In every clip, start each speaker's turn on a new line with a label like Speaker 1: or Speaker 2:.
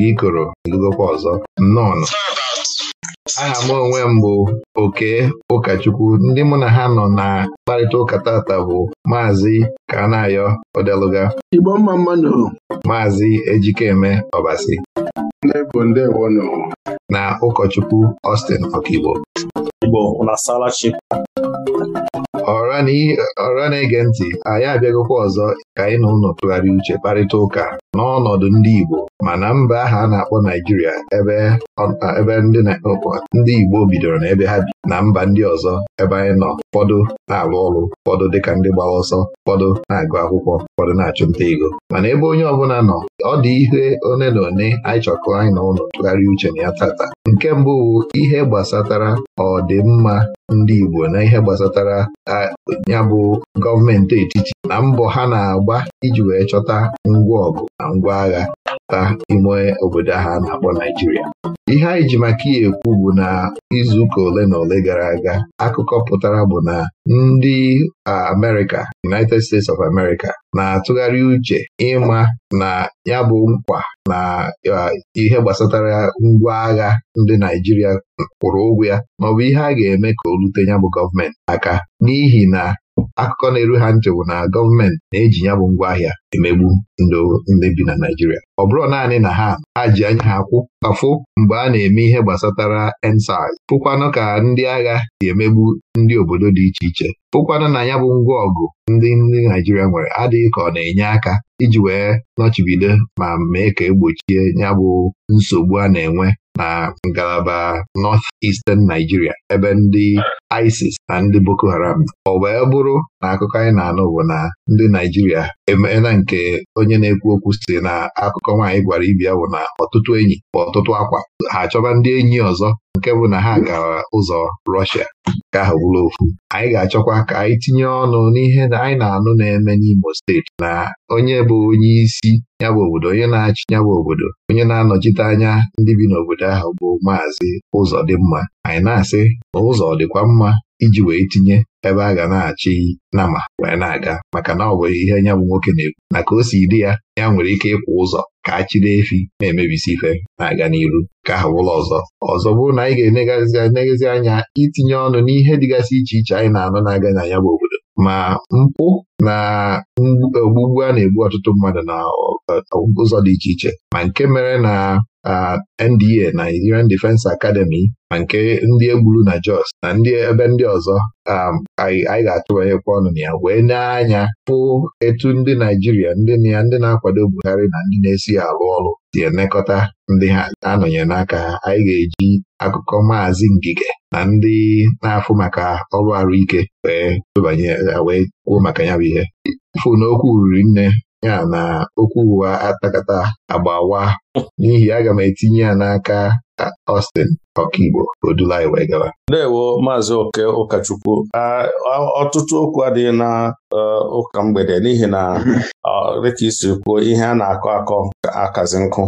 Speaker 1: gị ikoro edugokwa ọzọ nnọọ aha m onwe m bụ oke ụkọchukwu ndị mụ na ha nọ na mkparịta ụka tata bụ maazị Kanayo Odeluga Igbo mma mmanụ maazị Ejikeme Ọbasi
Speaker 2: na ụkọchukwu Austin Okigbo Igbo
Speaker 1: ọra na-ege ntị anyị abịagokwa ọzọ ka anyị na ụlọ tụgharịa uche kparịta ụka n'ọnọdụ ndị Igbo mana mba aha a na-akpọ Naijiria ebe ebe ndị ndị Igbo bidoro na ebe ha bi na mba ndị ọzọ ebe anyị nọ ụfọdụ na-alụ ọrụ ụfọdụ dịka ndị gbara ọsọ ụfọdụ na-agụ akwụkwọ ụfọdụ na-achụ nta ego mana ebe onye ọbụla nọ ọ dị ihe one na one anyị chọkọ anyị na ụlọ tụgharịa uche na ya tata nke mbụ ihe gbasatara ọdịmma ndị Igbo na ihe gbasatara ya bụ gọọmenti etiti na mbọ ha na-agba iji wee chọta ngwa ọgụ na ngwa agha na ime obodo ahụ na-akpọ Naijiria ihe anyị ji maka ihe ekwu bụ na izuụka ole na ole gara aga akụkọ pụtara bụ na ndị America United States of America na-atụgharị uche ịma na ya bụ mkpa na ihe gbasatara ngwa agha ndị Naijiria kwụrụ ụgwọ ya maọbụ ihe a ga-eme ka o rute ya bụ gọọmenti aka n'ihi na akụkọ na-eru ha ntị bụ na gọọmenti na-eji ya bụ ngwaahịa emegbu ndị bi na Naijiria ọ bụrụ naanị na ha ha ji anya ha kwụ afụ mgbe a na-eme ihe gbasatara ensaị pụkwanụ ka ndị agha si emegbu ndị obodo dị iche iche pụkwanụ na ya bụ ngwa ọgụ ndị ndị Naijiria nwere adịghị ka ọ na-enye aka iji wee nọchibido ma mee ka egbochie ya bụ nsogbu a na-enwe na ngalaba North Eastern Nigeria ebe ndị ISIS na ndị Boko Haram ọ wee bụrụ na akụkọ anyị na-anụ bụ na ndị Naijiria emeela nke onye na-ekwu okwu si na akụkọ nwaanyị gwara ibi ya bụ na ọtụtụ enyi bụ ọtụtụ akwa ha achọba ndị enyi ọzọ nke bụ na ha gara ụzọ rọshia ka ahụ bụrụ ofu anyị ga-achọkwa ka anyị tinye ọnụ n'ihe na anyị na-anụ na-eme n'Imo steeti na onye bụ onye isi ya bụ obodo onye na-achị ya bụ obodo onye na-anọchite anya ndị bi n'obodo ahụ bụ maazị Ụzọdịmma anyị na-asị na ụzọ dịkwa mma iji wee tinye ebe a ga na-achị nama wee na-aga maka na ọ bụ ihe nya bụ nwoke na-ekwu na ka o si dị ya ya nwere ike ịkwụ ụzọ ka a chiri efi na-emebisi ife na-aga n'iru ka aha bụla ọzọ ọzọ bụrụ na anyị ga-enegazi anya itinye ọnụ n'ihe dịgasị iche iche anyị na-anụ na-aga na ya bụ obodo ma mpụ na ogbugbu a na-egbu ọtụtụ mmadụ na ụzọ dị iche iche ma nke mere na NDA Nigerian Defence Academy na nke ndị egburu na Jos na ndị ebe ndị ọzọ um, anyị ga-atụbanyekwa ọnụ na ya wee na-anya pụ etu ndị Naijiria ndị na ya ndị na-akwado Buhari na ndị na-esi arụ ọrụ si enekọta ndị ha anọnyere n'aka anyị ga-eji akụkọ maazị Ngige na ndị na-afụ maka ọrụ arụike wee tụbanye wee kwuo maka ya bụ ihe fụ na okwu nne ya na okwu ụwa atakata agbawa n'ihi aga m etinye ya n'aka
Speaker 3: Austin Ọkaigbo Odulai wee
Speaker 2: Ndewo Maazị Oke ụkọchukwu ọtụtụ okwu adịghị na e, ụka mgbede n'ihi na dịka isi kwuo ihe a na-akọ akọ akazi nkụ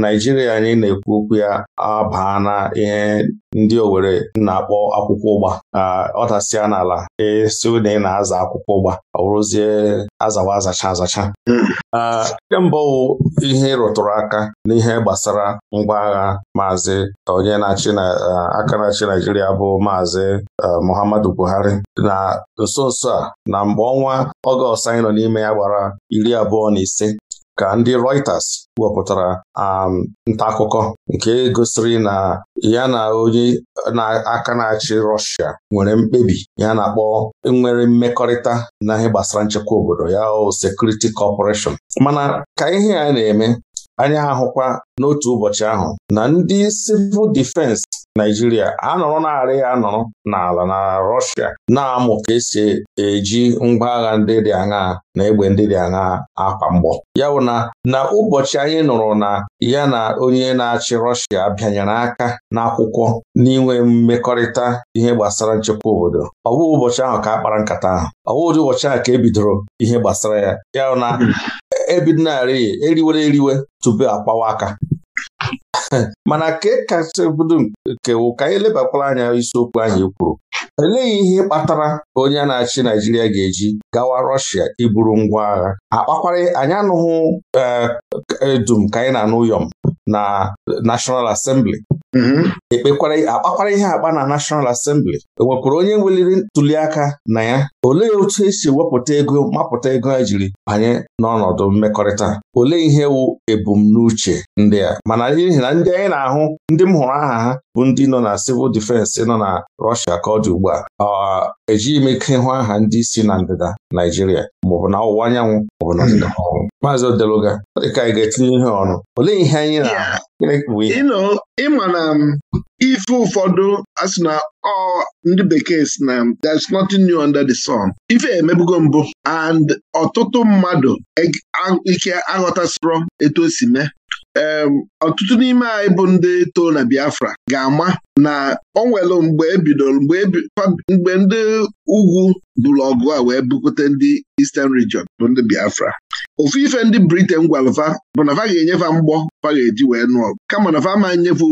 Speaker 2: Naijiria anyị na-ekwu okwu ya abaa na ihe ndị Owerri na-akpọ akwụkwọ ụgba ọdasịa n'ala ịsị e, na ị na-aza akwụkwọ ụgba ọ bụrụzie azawa azacha azacha mba ọwụ ihe ịrụtụrụ aka n'ihe gbasara ngwa agha maazị onye na-achị aka na-achị Naijiria bụ maazị Muhammadu Buhari na nso nso a na mgbe ọnwa Ọgọst anyị nọ n'ime ya gbara iri abụọ na ise ka ndị Reuters wepụtara nta akụkọ nke gosiri na ya na onye na-aka na-achị Rọshia nwere mkpebi ya na-akpọ nwere mmekọrịta na ihe gbasara nchekwa obodo ya o Security Corporation mana ka ihe a na-eme ha ahụkwa n'otu ụbọchị ahụ na ndị civil defense Naijiria anọrọ narị anọrọ n'ala na Rọshịa na-amụ ka esi e, eji ngwa agha ndị dị aṅaa na egbe ndị dị aṅaa akwa mgbọ ya bụ na na ụbọchị anyị nụrụ na ya na onye na-achị rọshia bịanyere aka n'akwụkwọ n'inwe mmekọrịta ihe gbasara nchekwa obodo ọ bụ ụbọchị ahụ ka a kpara nkata ahụ ọ bụ ụdị ụbọchị ahụ ka e bidoro ihe gbasara ya ya bụ na ebidonarị e eriwere eriwe tupu akpawa aka mana ka kasị bido nke ka anyị elebakwara anya isiokwu anyị e kwuru eleghị ihe kpatara onye a na-achị Naijiria ga-eji gawa Rọshia iburu ngwa agha akpakwara anyị anụghị eh, edum ka anyị na-anụ m. na National Assembly mm-hmm. ekpekwara akpakwara ihe akpa na National Assembly ewepụrụ onye weliri ntuliaka na ya olee otu esi wepụta ego mapụta ego a jiri banye n'ọnọdụ mmekọrịta olee ihe wụ ebumnuche ndị a mana n'ihi na ndị anyị na-ahụ ndị m hụrụ aha ha bụ ndị nọ na civil defense nọ na Russia ka ọ dị ugbu a ejighị m ike hụ aha ndị si na ndịda Naijiria maọbụ na ọwụwa anyanwụ maọbụ na ọdịda ọwụwa hmm. Maazị Odeluga ọ dị ka anyị ga-etinye ihe ọnụ olee ihe anyị na-abụ ịma
Speaker 4: na um, ife ụfọdụ asị na ọ ndị bekee si na um, there's nothing new under the sun ife emebugo mbụ and ọtụtụ mmadụ ike aghọtasịrọ etu o si mee ọtụtụ n'ime anyị bụ ndị too na Biafra ga-ama na o nwere mgbe ebidoro e mgbe ndị ugwu buru ọgụ a wee bukute ndị Eastern Region bụ ndị Biafra ofu ife ndị Briten gwalva bụ na ga-enyefa mgbọ va ga-eji wee nụọ ọgụ kama na va ma nyefe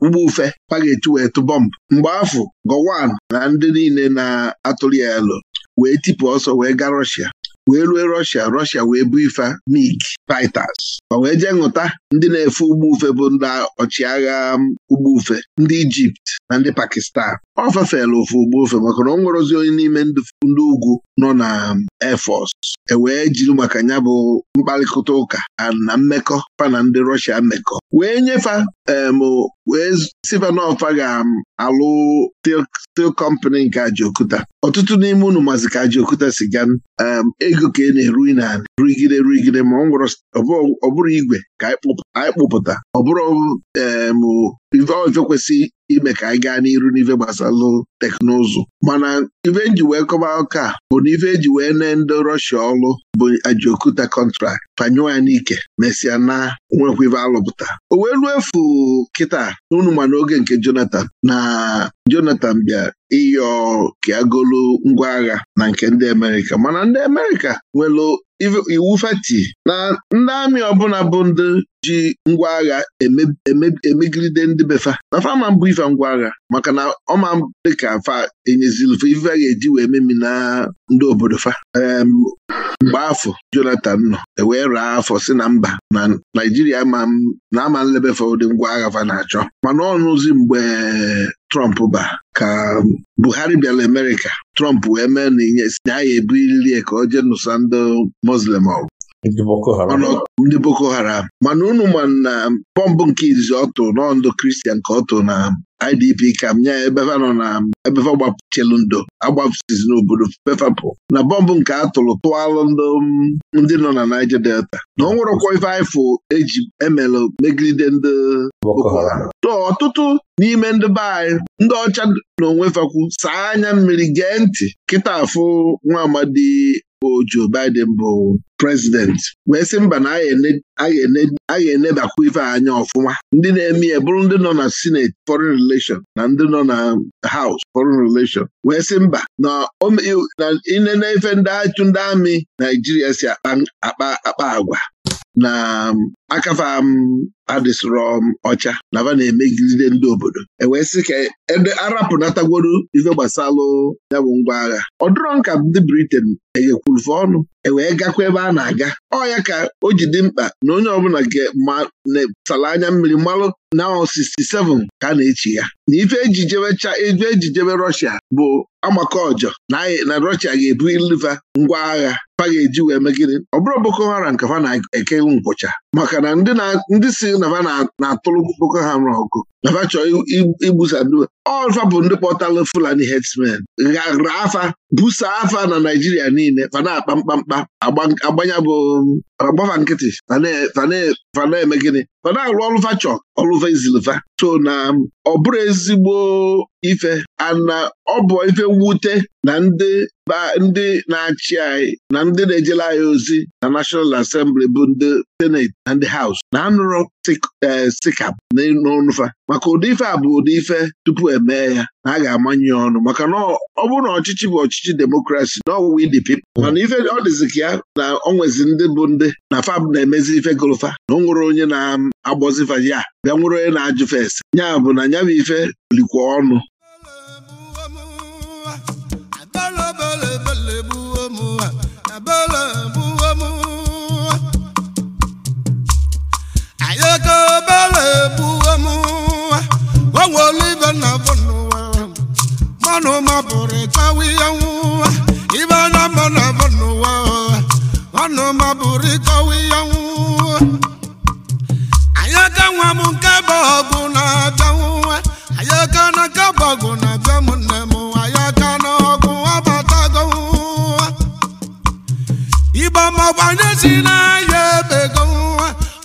Speaker 4: ụgbọ ufe va ga-eji wee tụ bọmbụ mgbe afọ Gowon na ndị niile na-atụrụ ya elu wee tipụ ọsọ wee gaa rọshia wee rue Rọshia Rọshia wee bụ ife MiG fighters ma wee jee ṅụta ndị na-efe ụgbọ ufe bụ ndị ọchịagha um, ugbo ufe ndị Ijipt na ndị Pakistan ọ fefela ofe ugbo ufe maka na ọ nwerozi onye n'ime ndị ugwu nọ na um, Air Force e wee jiri maka ya bụ mkparịkọta ụka na mmekọ fa na ndị Rọshia mmekọ wee nyefe um, wee sivanofa ga-alụ um, steel company nke ajiokuta ọtụtụ n'ime unu mazi ka Ajaokuta si ga um, ego ka e na-eru na ruigide ruigide ma ọ bụrụ igwe ka anyị kpụpụta ọ bụrụ um, ife kwesị ime ka anyị gaa n'iru n'ife gbasalụ teknụzụ mana ife nji e wee kọba ụka bụ na ife eji wee nee ndị Rọshia ọlụ bụ ajokuta kọntrakt panyụọ ya n'ike mesịa na nwekwa alụpụta o wee ruo efu kịta unu ma n'oge nke Jonatan na Jonatan bịa ịyọ ka e ngwa agha na nke ndị Amerịka mana ndị Amerịka nwere iwu feti na ndị amị ọbụla bụ ndị ji ngwa agha emegide ndị befa na fama mbụ ife ngwa agha maka na ọma dịka fa enyezilife ife ga-eji wee memi na ndị obodo fa mgbe afọ Jonathan nọ ewee raa afọ si na mba na Naijiria na ama nlebefe ụdị ngwa agha fa na-achọ mana ọnụzi mgbe Trump ba ka Buhari bịara Amerịka Trump wee mee na inye si na ya ebulili ka o jee nụsa ndị Muslim ọgụ ndị Boko Haram mana unu ma na bọmbụ nke izizi ọ n'ọndụ Kristian ka ọ tụrụ na IDP kam nya ebefa nọ na ebefa gbapụchelu ndo agbapụsizi n'obodo pefapụ na bọmbụ nke atụrụ tụalụ ndị nọ na Niger Delta na ọ ife ifụ eji emelụ megide ndị ọtụtụ n'ime ndị be anyị ndị ọcha na onwefekwu saa anya mmiri gee ntị kịta afụ nwa amadi bụ Biden bụ president wee sị mba na agha enebakwa ife anya ọfụma ndị na-eme ya ndị nọ na senate foreign relation na ndị nọ na House foreign relation wee sị mba na inene ife ndị achụ amị Naijiria si akpa akpa agwa na akafa m um, adịsịrọ m ọcha na va na-emegide ndị obodo e wee sị ka ede arapụnatagworo ife gbasalụ yabụ ngwa agha ọ dịrọ nka ndị Britain eghekwurufe ọnụ ewee gakwa ebe a na-aga ọ ya ka o ji dị mkpa na onye ọbụla sala anya mmiri mmalụ na 67 ka a na-echi ya na ife ejijebe e Russia bụ agbakọ ọjọ na Russia ga-ebu iliva ngwa agha fa ga-eji wee megide ọ bụrụ Boko Haram ka fa na-ekewu nkwụcha maka na ndị si nava na-atụrụ ụka ha ọgụ nava chọọ igbusadu ọzọ bụ ndị kpọtalụ Fulani herdsmen ghara afa busa afa na Naijiria niile fana akpa mkpamkpa agbanya bụ agbafa nkịtị fana eme gịnị fana arụ ọrụ fachọ ọrụfa izilfa so na ọ bụrụ ezigbo ife ana ọ bụ ife mwute na ndị ndị na-achị anyị na ndị na-ejela anyị ozi na National Assembly bụ ndị Senate na ndị Haus na anụrụ sikap eh, n'ọnụfa maka ụdị ife a bụ ụdị ife tupu emee ya na a ga-amanye ọnụ maka na ọ bụrụ na ọchịchị bụ ọchịchị demokrasi na ọwụwa ndị pipil mana ife ọ dịzi ka ya na ọ nwezi ndị bụ ndị na fab na-emezi ife golofa na ọ nwere onye na-agbọzifa ya bịa nwere onye na ajụ ese ya bụ na ya bụ ife likwa ọnụ
Speaker 5: ego ga gbuo m onwere ibe na bụ na na nwa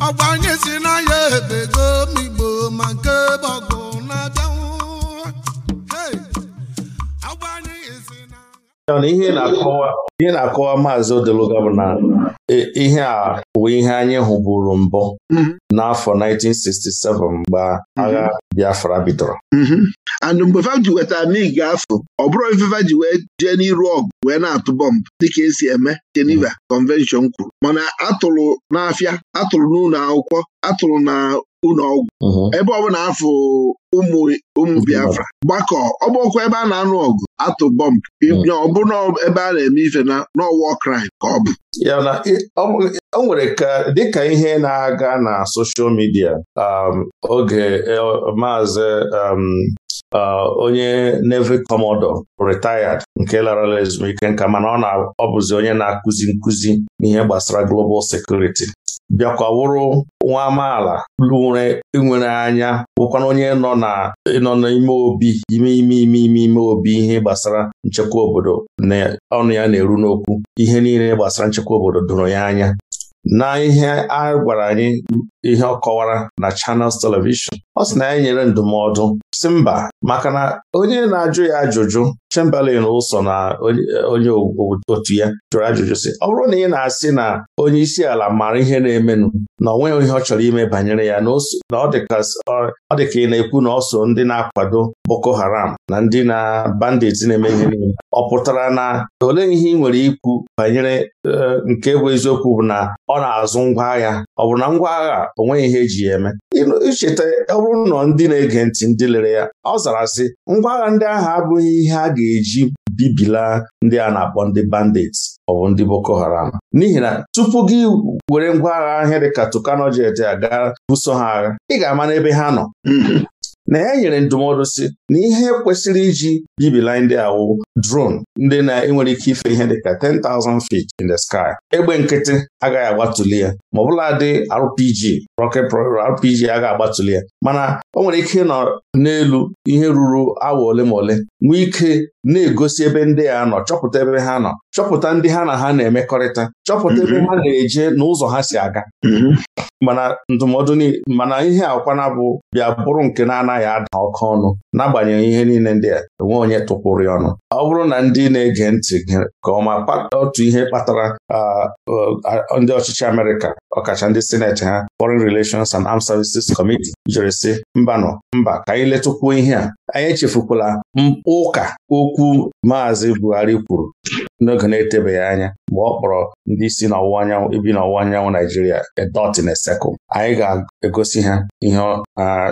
Speaker 5: ọgbanye si n'anya
Speaker 2: na ihe na-akọwa maazị Odeluga bụ na e, ihe a bụ ihe anyị hụburu mbụ mhm. n'afọ 1967 mgbe agha mhm. Biafra bidoro
Speaker 4: mhm. and mgbe fa ji weta
Speaker 2: mig afọ ọ bụrụ ji wee jee
Speaker 4: n'iru ọgụ wee na-atụ bọmbụ dịka esi eme Geneva Convention kwuru mana atụrụ n'afịa atụrụ n'ụlọ akwụkwọ atụrụ na ụlọ ọgwụ uh-huh. ebe ọ bụla afọ ụmụ ụmụ Biafra gbakọ ọgbọkwa ebe a na-anụ ọgụ atụ bọmbụ uh-huh. nye ọbụna ebe a na-eme ife na n'ọwa kraịm ka ọ bụ
Speaker 2: o nwere ka dịka ihe na-aga na soshal midia um, oge e, maazị um, onye nevi Commodore retired nke larala ezumike nka mana ọ na ọ bụzi onye na-akụzi nkuzi n'ihe gbasara global security bịakwa wụrụ nwa amaala lụre nwere anya wụkwana onye nọ nọ n'ime obi ime ime ime ime ime obi ihe gbasara nchekwa obodo na ọnụ ya na-eru n'okwu ihe niile gbasara nchekwa obodo dụrụ ya anya na ihe a gwara anyị ihe ọ kọwara na chanels Television ọ sị na ya nyere ndụmọdụ si mba maka na onye na-ajụ ya ajụjụ Chamberlain ụsọ na onye otu ya jụrụ ajụjụ si ọ bụrụ na ị na-asị na onye isi ala maara ihe na-emenụ na onwe ihe ọ chọrọ ime banyere ya na ọ dị ka ị na-ekwu na ọ so ndị na-akwado Boko Haram na ndị na bandits na-eme ihe niile ọ pụtara na ole ihe ị nwere ikwu banyere eh, nke bụ eziokwu bụ na ọ na-azụ ngwa agha ọ bụ na ngwa agha o ihe eji ya eme icheta ọ bụrụ na ndị na-ege ntị ndị lere ya ọ zara sị ngwa agha ndị ahụ abụghị ihe a ga-eji bibila ndị a na-akpọ ndị bandits ọ bụ ndị Boko Haram n'ihi na tupu gị were ngwa agha ahịa dịka Tucano jet aga buso ha agha ị ga-ama n'ebe ha nọ na ya e nyere ndụmọdụ si na ihe kwesịrị iji bibila ndị awụ dron ndị na-enwere ike ife ihe dịka 10,000 feet in the sky egbe nkịtị agaghị agbatuli ya ma ọbụla dị RPG RPG agaghị agbatụli ya mana o nwere ike ịnọ n'elu ihe ruru awa ole ma ole nwee ike na-egosi ebe ndị a nọ chọpụta ebe ha nọ chọpụta ndị ha na ha na-emekọrịta chọpụta ebe mhm. ha na-eje na ụzọ ha si aga mhm. mana ndụmọdụ mana ihe akwana bụ bịa bụrụ nke na-anaghị anaghị ada ọkụ ọnụ n'agbanyeghị ihe niile ndị a enwe onye tụpụrụ ya ọnụ ọ bụrụ na ndị na-ege ntị ka ọma otu ihe kpatara ndị ọchịchị Amerịka ọkacha ndị sineti ha Foreign Relations and Armed Services Committee si, mba mbanụ mba ka anyị letụkwuo ihe a anyị echefukwala ụka okwu Maazị Buhari kwuru n'oge na-etebeghị anya mgbe ọ kpọrọ ndị isi n'ọwụwa anyanwụ ibi n'ọwụwa anyanwụ Naijiria a dot in anyị ga-egosi ha ihe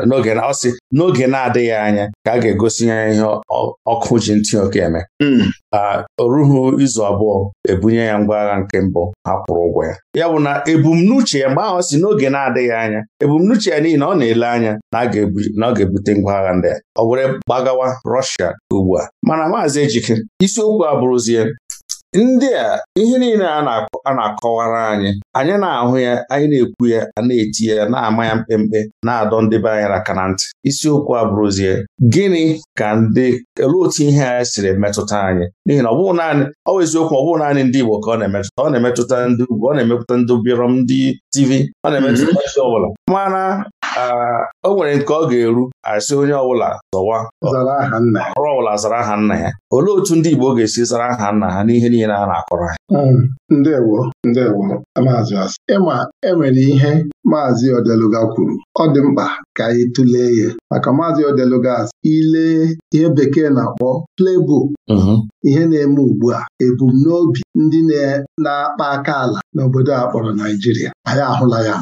Speaker 2: n'oge ọ sị n'oge na-adịghị anya ka a ga-egosi ya ihe ọkụ ji ntị oke eme hmm. o rughị izu abụọ ebunye ya ngwa agha nke mbụ ha kwụrụ ụgwọ ya ya bụ na ebumnuche ya mgbe ahụ si n'oge na-adịghị anya ebumnuche ya n'ihi na ọ na-ele anya na ọ ga-ebute ngwa agha ndị a ọ were gbagawa Rọshia ugbu a mana maazị Ejike isiokwu a bụrụzie ndị a ihe niile a na-akọwara anyị anyị na-ahụ ya anyị na-ekwu ya a na-eti ya na-ama ya mkpemkpe na-adọ ndị be anyị aka na ntị isiokwu a bụrụzie gịnị ka ndị elu otu ihe a siri metụta anyị n'ihi na ọ bụghị naanị ọ bụ eziokwu ọ bụghị naanị ndị Igbo ka ọ na-emetụta ọ na-emetụta ndị ugwu ọ na-emetụta ndị bịrọm ndị TV ọ na-emetụta mm-hmm. ndị ọ bụla mana o nwere nke ọ ga-eru asị onye ọbụla zọwa ọrụ ọbụla zara aha nna ya olee otu ndị Igbo ga-esi zara aha nna ha n'ihe niile a na-akọrọ ha hmm, ndewo Ndewo, Maazị Asị.
Speaker 3: Ịma
Speaker 4: enwere ihe Maazị Odeluga kwuru ọ dị mkpa ka anyị tụlee ya maka Maazị Odeluga ile ihe bekee na-akpọ plebo. Mhm. ihe na-eme ugbu a ebumnobi ndị na-akpa aka ala n'obodo a kpọrọ Naijiria anyị ahụla ya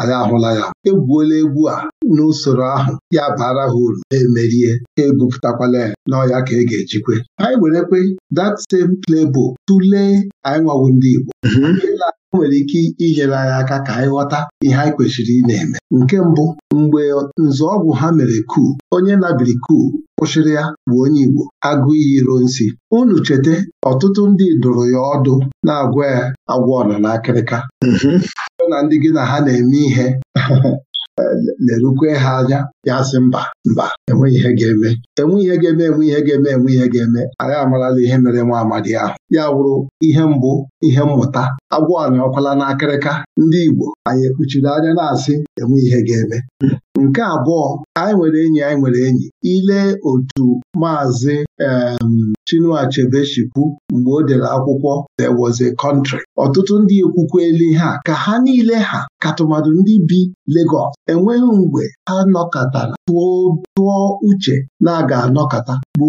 Speaker 4: anyị ahụla ya egwuola egwu a n'usoro ahụ ya bara ha uru emerie ha ebupụtakwala ya n'ọya ka e ga-ejikwe anyị werekwe that same plebo tụlee anyị nwawu ndị Igbo o nwere ike inyere anyị aka ka anyị ghọta ihe anyị kwesịrị ị na-eme nke mbụ mgbe nzọọgwụ ha mere kuu onye nabiri kuu kwụsịrị ya bụ onye Igbo agụ iyi iro unu cheta ọtụtụ ndị dụrụ ya ọdụ na-agwa ya agwa na akịrịka. n'akịrịka mhmm. na ndị gị na ha na-eme ihe lerukwe ha anya ya sị mba mba enweghị ihe ga-eme enweghị ihe ga-eme enwe ihe ga-eme enwe ihe ga-eme anyị amarala ihe mere nwa amadi ahụ ya wụrụ ihe mbụ ihe mmụta agwọ anyị ọkwala n'akịrịka ndị Igbo anyị ekpuchiri anya na-asị enwe ihe ga-eme Nke abụọ anyị nwere enyi anyị nwere enyi ile otu Maazị um Chinua Achebe mgbe o dere akwụkwọ There was a country. Ọtụtụ ndị ekwukweli ha ka ha niile ha ka tụmadụ ndị bi Legọs enweghị mgbe ha nọkọtara tụọ uche na aga anọkata anọkọta Igbo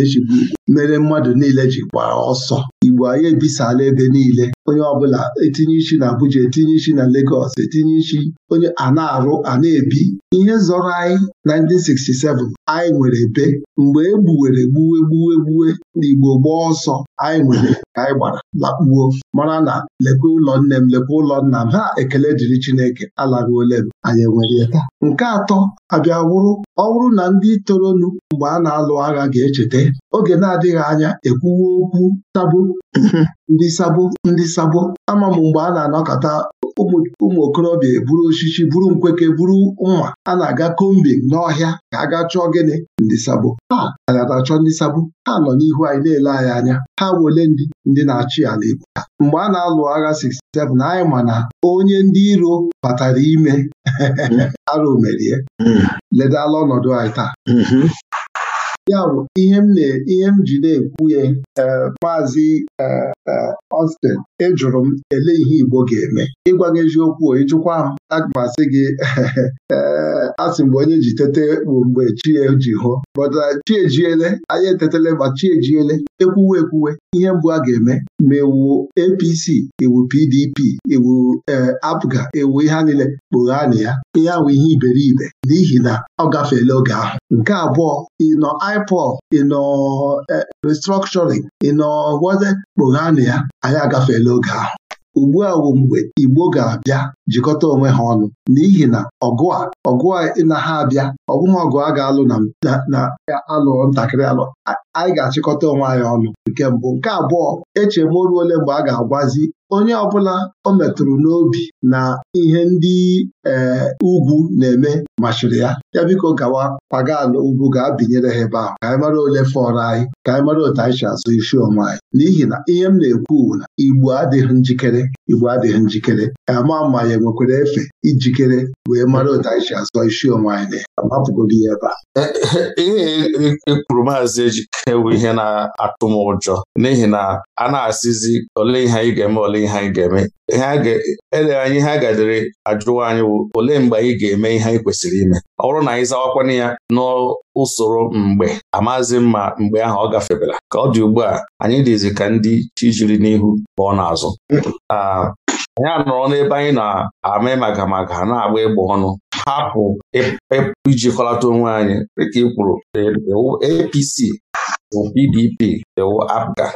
Speaker 4: echigbu ugbo. mere mmadụ niile ji gbaa ọsọ Igbo anyị ebisala ebe niile onye ọbụla etinye isi na Abuja etinye isi na Legọs etinye isi onye a na-arụ a na-ebi ihe zọrọ anyị 1967 anyị nwere be mgbe e gbuwere gbuwe gbuwe gbuwe n'Igbo gbaa ọsọ anyị nwere ka anyị gbara lakpuo mara na lekwe ụlọ nne m lekwe ụlọ nna m ha ekele dịrị Chineke ole m anyị enwere ya taa. nke atọ abịa wụrụ ọ bụrụ na ndị toronu mgbe a na-alụ agha ga-echeta oge na-adịghị anya ekwuwe okwu sabo ndị sabo ndị sabo ama m mgbe a na-anọkọta ụmụ okorobịa eburu osisi buru nkweke buru nwa a na-aga Kombi n'ọhịa ka a ga chọọ gịnị ndị sabo ha na-achọ ndị sabo ha nọ n'ihu anyị na-ele anyị anya ha wole ndị ndị na-achị ala Igbo mgbe a na-alụ agha 67 anyị ma na onye ndị iro batara ime mm-hmm. arụ merie mm-hmm. ledala ọnọdụ anyị taa mm-hmm. Ya bụ ihe m ihe m ji na-ekwu ya e, maazị e, e, Austin ejụrụ m ele ihe Igbo ga-eme ịgwa gị eziokwu ịjụkwa m aga m asị gị asị mgbe onye ji tete bụ mgbe chieji ji hụ bọta uh, chiejiele anyị etetele ma chiejiele. ekwuwe ekwuwe ihe mbụ a ga-eme ma ewu APC ewu PDP ewu eh, APGA ewu ihe niile kpogha na ya ihe ahụ ihe iberibe n'ihi na ọ gafeela oge ahụ nke abụọ ịnọ ipol ịnọ eh, restructuring ịnọ kpogha na ya anyị agafeela oge ahụ ugbu a bụ mgbe Igbo ga-abịa jikọta onwe ha ọnụ n'ihi na ọgụ a ọgụ a na ha abịa ọ bụghị ọgụ a ga-alụ na alụ ntakịrị alụ anyị ga-achịkọta onwe anyị ọnụ nke mbụ nke abụọ eche m ruo ole mgbe a ga-agwazi onye ọbụla o metụrụ n'obi na ihe ndị ee ugwu na-eme machiri ya ya biko gawa kwaga ala ugwu gaa binyere ha ebe ahụ ka anyị mara ole fọrọ anyị ka anyị mara otu anyị si azụ isi onwe anyị n'ihi na ihe m na-ekwu na Igbo adịghị njikere Igbo adịghị njikere ama mmanya anyị nwekwara efe ijikere wee mara otu anyị azọ isi onwe anyị agbapụgodo ya ebe
Speaker 2: a ihe ekwuru e, e, e maazị ejike bụ ihe na-atụ m ụjọ n'ihi na a na-asịzi ole ihe anyị ga-eme ole ihe anyị ga-eme ele anyị ha gadere ajụwa anyị bụ olee mgbe anyị ga-eme ihe anyị kwesịrị ime ọ bụrụ na anyị zawakwana ya n'usoro mgbe amazi mma mgbe ahụ ọ gafebela ka ọ dị ugbu a anyị dịzi ka ndị chi jiri n'ihu pụọ n'azụ anyị anọrọ n'ebe anyị na-ama magamaga na-agba ịgba ọnụ hapụ e, e, ijikọlata onwe anyị dịka ị kwuru e, APC PDP ewu APGA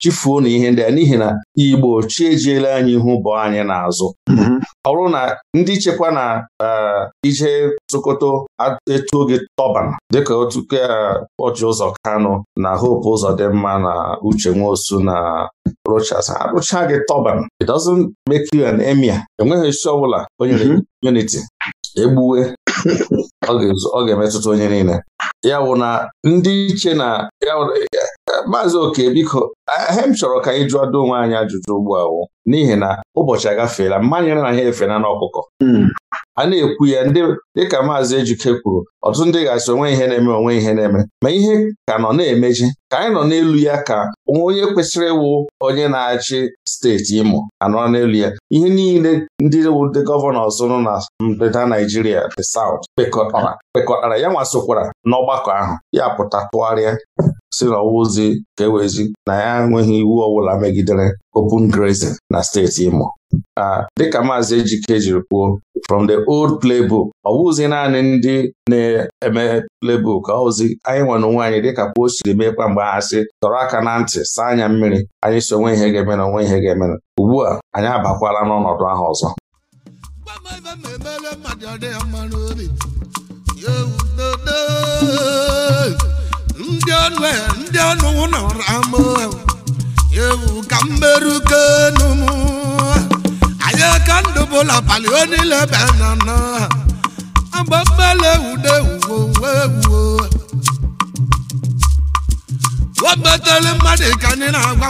Speaker 2: chifuo na ihe ndị a n'ihi na Igbo chi ejiela anyị ihu bụ anyị n'azụ mm-hmm. ọ bụrụ na ndị chekwa na eh, ije tụkọto etu oge tọban dịka otu Ọchị eh, Ụzọ kano na Hope Ụzọ dị mma na Uche Nwosu na Rochas arụcha gị tọban it doesn't make you an emir enweghị isi ọbụla o nyere mm-hmm. unity egbuwe ọ ga-emetụta onye niile ya wụ na ndị iche na maazị oke biko hem chọrọ ka anyị jụọ do onwe anyị ajụjụ ugbu a n'ihi na ụbọchị agafeela mmanya na ha efena n'ọkụkọ hmm. a na-ekwu ya dịka Maazị Ejike kwuru ọtụtụ ndị ga-asị onwe ihe na-eme onwe ihe na-eme ma ihe ka nọ na-emeji ka anyị nọ n'elu ya ka onye kwesịrị ịwụ onye na-achị steeti Imo anọ n'elu ya ihe niile ndị ndị gọvanọs nọ na ndịda Naijiria the South kpekọtara kpekọtara ya nwasokwara n'ọgbakọ ahụ ya pụta tụgharịa si ozi ka ewezi na ya enweghị iwu ọbụla megidere open grazing na steeti Imo dịka maazị Ejike jiri kwuo from the old playbook ọ bụzi naanị ndị na-eme playbook ọ bụzi anyị nwere onwe anyị dịka kwuo siri mgbe ha sị tọrọ aka na ntị saa anya mmiri anyị so onwe ihe ga-emena onwe ihe ga-emena ugbu a anyị abakwala n'ọnọdụ ahụ ọzọ
Speaker 5: anyị ka ndụ bụla palị onile ebe na nọ agba mmele ude uwe uwe uwe mmadụ ka anyị na agba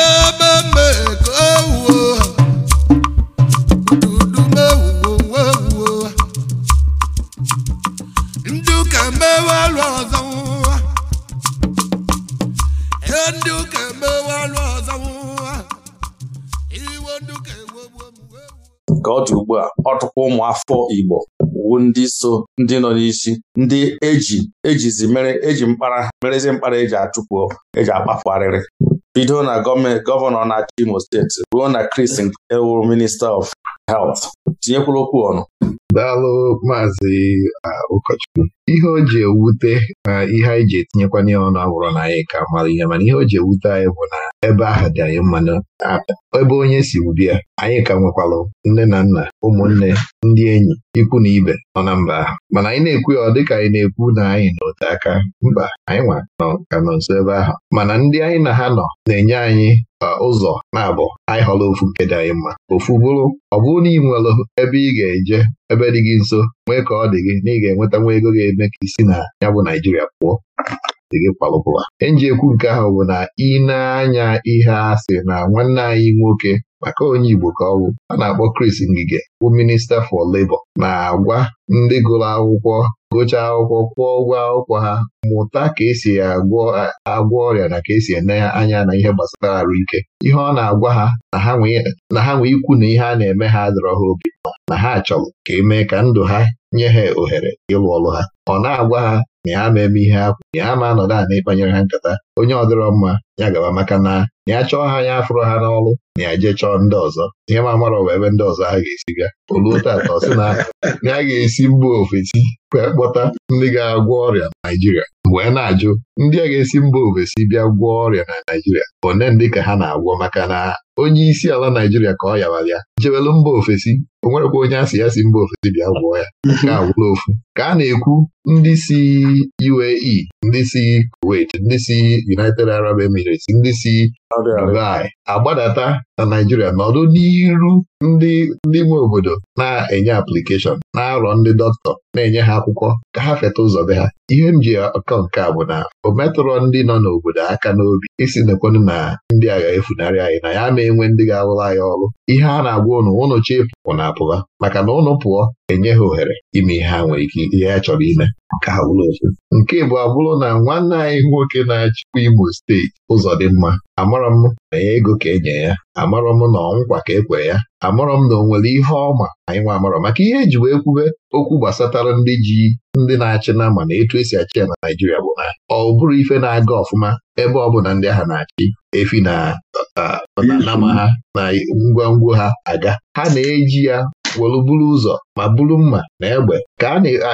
Speaker 5: ebe mbe ka owuo ududu mewuwo alụ ọzọ ndị
Speaker 2: ka ọ dị ugbu a ọtụkwa ụmụafọ ụmụ afọ Igbo wu ndị so ndị nọ n'isi ndị eji ejizi mere eji mkpara merezi mkpara eji achụpụ eji akpapụ arịrị bido na gọọmenti gọvanọ na-achị Imo steeti ruo na Kris Ewu minista of health tinyekwuru okwu ọnụ daalụ maazị
Speaker 1: ụkọchukwu ihe o ji ewute na ihe anyị ji etinyekwa n'ihe ọnụ abụrụ na anyị ka mara ihe mana ihe o ji ewute anyị bụ na ebe ahụ dị anyị na ebe onye si bịa anyị ka nwekwalụ nne na nna ụmụnne ndị enyi ikwu na ibe nọ na mba ahụ mana anyị na-ekwu ya ọ dịka anyị na-ekwu na anyị n'ote aka mba anyị nwa nọ ka nọ nso ebe ahụ mana ndị anyị na ha nọ na-enye anyị ụzọ na-abụ anyị họrọ ofu nke dị anyị mma ofu bụrụ ọ bụrụ na ị nwere ebe ị ga-eje ebe dị gị nso nwee ka ọ dị gị na ị ga-enweta nwa ego ga-eme ka isi na ya bụ Naijiria pụọ dị gị enji ekwu nke ahụ bụ na ị na-anya ihe asị na nwanne anyị nwoke maka onye Igbo ka ọ bụ a na-akpọ Kris Ngige bụ minista for Labour na-agwa ndị gụrụ akwụkwọ gụchaa akwụkwọ kwụọ ụgwọ akwụkwọ ha mụta ka esi agwọ ọrịa na ka esi ene anya na ihe gbasara ike. ihe ọ na-agwa ha na ha nwee ikwu na ihe a na-eme ha adọrọ ha obi na ha achọrọ ka eme ka ndụ ha
Speaker 3: nye ha ohere
Speaker 1: ịlụ ọlụ ha ọ na-agwa ha na na-eme ihe akwa na ya na-anọdụ anị ịkpanyere ha nkata onye ọdịrọ mma ya gaba maka na ya chọọ ha ya afụrụ ha n'ọlụ, na ya jee chọọ ndị ọzọ ihe ma mara ọwa ebe ndị ọzọ ha ga-esi bịa oluo tata ọ sị na ya ga-esi mba ofesi kpọta ndị ga-agwọ ọrịa na Naịjirịa mgbe a na-ajụ ndị a ga-esi mba ofesi bịa gwọọ ọrịa na Naịjirịa one ndị ka ha na-agwọ maka na onye isi ala Naijiria ka ọ yabara ya jewelu mba ofesi o nwerekwa onye asị ya si mba ofesi bịa gwọọ ya nke agwụla ofu ka a na-ekwu ndị si UAE ndị si Kuwait ndị si United Arab Emirates ndị si Dubai agbadata na Naijiria nọdụ n'iru ndị ndị nwe obodo na-enye aplikeshọn na-arọ ndị dọkịta na-enye ha akwụkwọ ka ha feta ụzọ be ha ihe m ji akọ nke a bụ na o metụrọ ndị nọ n'obodo aka n'obi isi nekwenụ na ndị agha efunarị anyị na ya mee na-enwe ndị ga awụla ya ọrụ ihe a na-agwa ụnụ ụnụ chịpụ na apụla maka na ụnụ pụọ enye ha ohere ime ihe ha nwere ike ihe ha chọrọ ime ka ha bụrụ ofu nke bụ abụrụ na nwanne anyị nwoke na-achịkwa Imo steeti ụzọ dị mma amarọ m na ya ego ka enye ya amarọ m na ọnwụkwa ka e kwere ya amụrọ m na o nwere ihe ọma anyị nwa amụrụ maka ihe eji wee kwube okwu gbasatara ndị ji ndị na-achị na ma na etu esi achị ya na Naịjirịa bụ na ọ bụrụ ife na-aga ọfụma ebe ọ bụ na ndị agha na-achị efi na nama ha na ngwongwo ha aga ha na-eji ya weluburu ụzọ ma bụrụ mma na egbe ka a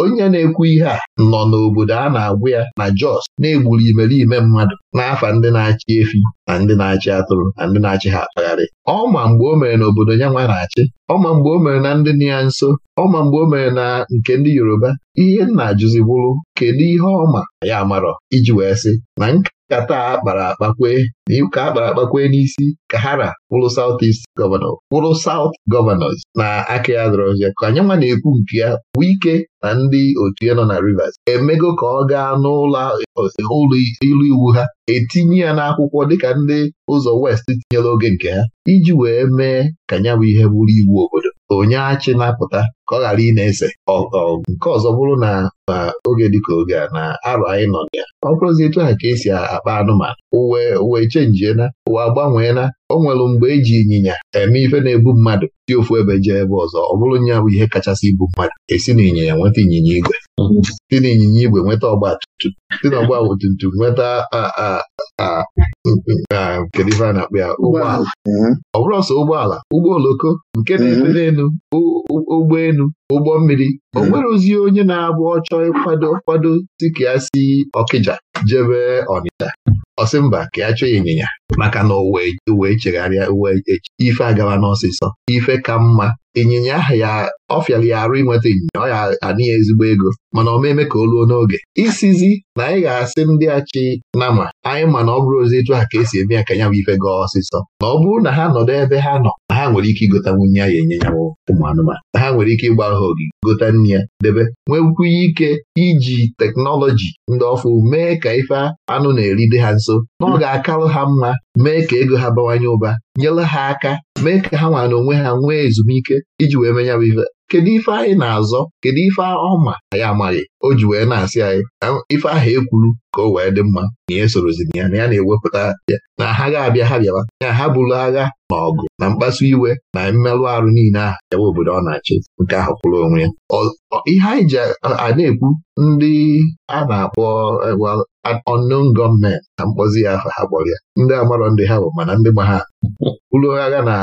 Speaker 1: onye na-ekwu ihe a nọ n'obodo a na-agwụ ya na Jos na-egburu imerime mmadụ n'afa ndị na-achị efi na ndị na-achị atụrụ na ndị na-achị ha akpagharị ọma mgbe o mere n'obodo ya nwa na-achị ọma mgbe o mere na ndị dị ya nso ọma mgbe o mere na nke ndị Yoruba ihe nna ajụzi bụrụ kedu ihe ọma ya amarọ iji wee sị na nkata akpara akpakwe ka akpara akpakwe n'isi ka hara wụrụ South East wụrụ South gọvanọs. na aka ọzọ ka anyị nwa na-ekwu nke ya bụ ike na ndị otu ya nọ na Rivers emego ka ọ gaa n'ụlọ ilu iwu ha etinye ya n'akwụkwọ dịka ndị ụzọ West tinyere oge nke ha iji wee mee ka nya bụ ihe bụrụ iwu obodo onye achị na-apụta ka ọ ghara ị na-ese nke ọzọ bụrụ na oge dịka oge a na arọ anyị nọ na ya ọ bụrụzi etu ha ka esi akpa anụmanụ uwe uwe chenjiena uwe agbanweela o nwere mgbe eji ịnyịnya eme ife na-ebu mmadụ dị ofu ebe jee ebe ọzọ ọ bụrụ nya bụ ihe kachasị ibu mmadụ esi na ịnyịnya nweta ịnyịnya igwe na n'ịnyịnya igwe nweta ọgba tumtum si n'ọgba tumtum nweta a ife a na-akpọ ya ụgbọala mhm. ọ bụrụ ọsọ ụgbọala ụgbọ oloko nke na-esi mhm. n'elu ụgbọ elu ụgbọ mmiri o mhm. nwere ozi onye na-abụ ọchọ ịkwado kwado si ka ya si Ọkịja jebe Ọnịcha ọsị mba ka ya chọọ ịnyịnya maka na owee chegharịa uwe ife agawa n'ọsịsọ ife ka mma ịnyịnya ahụ ya ọfịara ya arụ ịnweta ịnyịnya ọ ya anịghị ezigbo ego mana omeme ka o luo n'oge isizi na anyị ga-asị ndị achị nama anyị ma na ọ bụrụ ozi etu a ka esi eme ya ka ya bụ ife gaa ọsịsọ na ọ bụrụ na ha nọdụ ebe ha nọ na ha nwere ike igotanwu nye ya enye ụmụ anụmanụ ha nwere ike ịgba ahụ gota gote ya debe nwekwu ike iji teknọlọji ndị ọfụ mee ka ife anụ na-eride ha nso na ọ ga-akarụ ha mma mee ka ego ha bawanye ụba nyere ha aka mee ka ha nwa na onwe ha nwee ezumike iji wee menya bụ ife kedu ife anyị na-azọ kedu ife ọma anyị amaghị o ji wee na-asị anyị ife ahụ ekwuru ka o wee dị mma na ihe sorozin ya na ya na-ewepụta ya na ha ga-abịa ha bịawa ya ha bụrụ agha na ọgụ na mkpasu iwe na mmerụ arụ niile ahụ yawa obodo ọ na-achị nke ahụ kwụrụ onwe ya ihe anyị ji a na-ekwu ndị a na-akpọ unknown gọọmenti na mkpọzi ya ha kpọrọ ya ndị amarọ ndị ha bụ mana ndị gba ha ụlọ agha na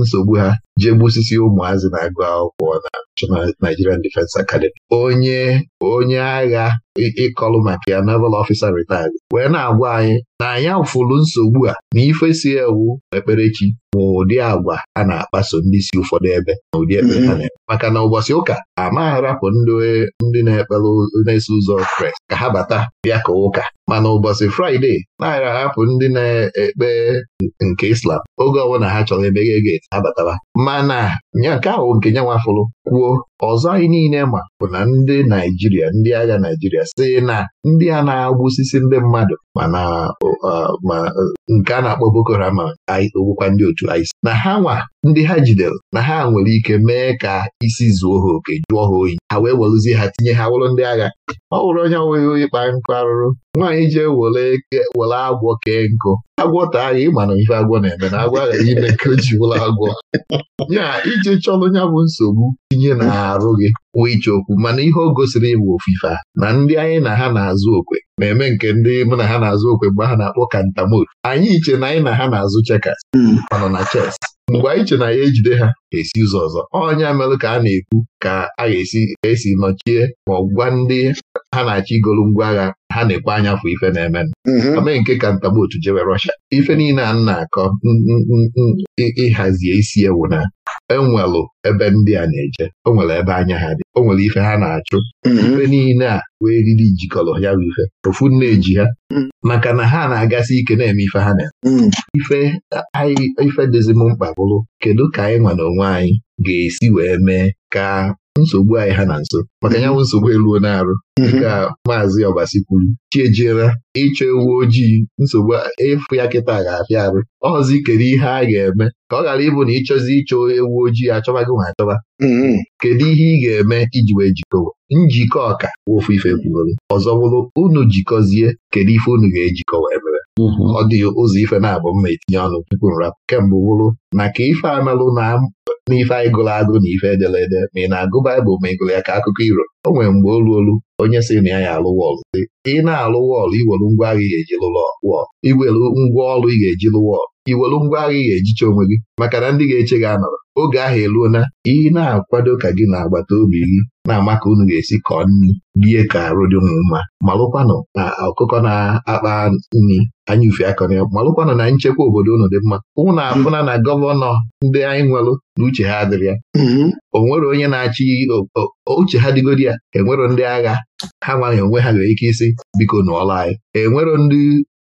Speaker 1: nsogbu ha jee gbusisi ụmụazị na-agụ akwụkwọ na National Nigerian Defence Academy onye onye agha ịkọlụ maka ya naval ofisa retired wee na-agwa anyị na anyị afụlụ nsogbu a na ife si ewu ekperechi ma ụdị agwa a na-akpaso ndị si ụfọdụ ebe na ụdị ekpere ha mm-hmm. na maka na ụbọchị ụka amagharapụ ndị na-ekpere na-eso ụzọ Kraịst ka ha bata bịa ka ụka mana ụbọchị Fraịde na ahapụ ndị na-ekpe nke Islam oge ọbụla ha chọrọ emeghe geti abataba mana nke ahụ nke nyanwa fụrụ kwuo ọzọ anyị niile ma bụ na ndị Naijiria ndị agha Naijiria sị na ndị a na agwụsisi ndị mmadụ mana ma e, nke a na-akpọ Boko Haram ogbukwa ndị otu ISIS na ha nwa ndị ha jidere na ha nwere ike mee ka isi zuo ha oke jụọ ha oyi ha wee werụzie ha tinye ha wụrụ ndị agha ọ wụrụ onye nweghị onye kpaa nkụ arụrụ nwaanyị ji were agwọ kee nkụ agwọ taa ya ịma na ife agwọ na-eme na agwọ aghaghị ime ka o ji wụrụ agwọ ya ije chọrọ nya bụ nsogbu tinye na n'arụ gị nwee iche okwu mana ihe o gosiri ịbụ ofufe a na ndị anyị na ha na-azụ okwe na-eme nke ndị mụ na ha na-azụ okwe mgbe ha na-akpọ kantamot anyị iche na anyị na ha na-azụ chekas hmm. nọ na chess mgbe anyị che na ya ejide ha esi ụzọ ọzọ ọnya merụ ka a na-ekwu ka a ga-esi esi nọchie ma ọ gwa ndị ha na-achọ igolu ngwa agha ha na-ekwe anya fụ ife na-eme amee mm-hmm. nke kantamot jewe Rọsha ife niile a na-akọ ịhazie isi ewu na enwelụ ebe ndị a na-eje o nwere ebe anya ha dị o nwere ife ha na-achụ mhm. ife niile a wee riri jikọrọ ya bụ ife ofu eji ha mhm. maka na ha na-agasị ike na-eme ife ha na-eme mhm. ife anyị ife mkpa bụrụ kedu ka anyị nwa na onwe anyị ga-esi wee mee ka nsogbu anyị ha na nso maka ya bụ nsogbu eluo na-arụ mhm. nke a maazị ọbasi kwuru chiejiela ịchọ ewu ojii nsogbu ịfụ ya kịta ga-afịa arụ ọzi kedu ihe a ga-eme ka ọ ghara ịbụ na ịchọzi ịchọ ewu ojii achọba gị ma achọba mhm. kedu ihe ị ga-eme iji wee jikọwa njikọ ọka ofu ife kwugoro ọzọ bụrụ unu jikọzie kedu ife unu ga-ejikọwa emere mhm. ọ dịghị ụzọ ife na-abụ mma etinye ọnụ tupu nrapụ kemgbe bụrụ na ka ife na n'ife anyị gụrụ agụ na ife ederede ma ị na-agụ Baịbụl ma ị gụrụ ya ka akụkọ iro o nwere mgbe olu olu onye si na ya ya alụ wọlụ ị na-alụ wọlụ iwelu ngwa agha ị ga-eji lụrụ wọlụ iwelu ngwa ọrụ ị ga-eji lụ wọlụ iwelu ngwa agha ị ga-ejicha onwe gị maka na ndị ga-eche gị anọrọ oge ahụ eluo ị na-akwado ka gị na agbata obi gị na-ama ka unu ga-esi kọọ nri rie ka arụ dị ụmụ mma malụkwanụ na ọkụkọ na-akpa nri anya ufe akọ na ya malụkwanụ na nchekwa obodo unu dị mma ụmụ na-afụna na gọvanọ ndị anyị nwelụ na uche ha adịrị ya mm-hmm. o nwere onye na-achị uche ha dịgodi ya enwero ndị agha ha nwaghị onwe ha nwere ike isi biko n'ụlọ anyị enwero ndị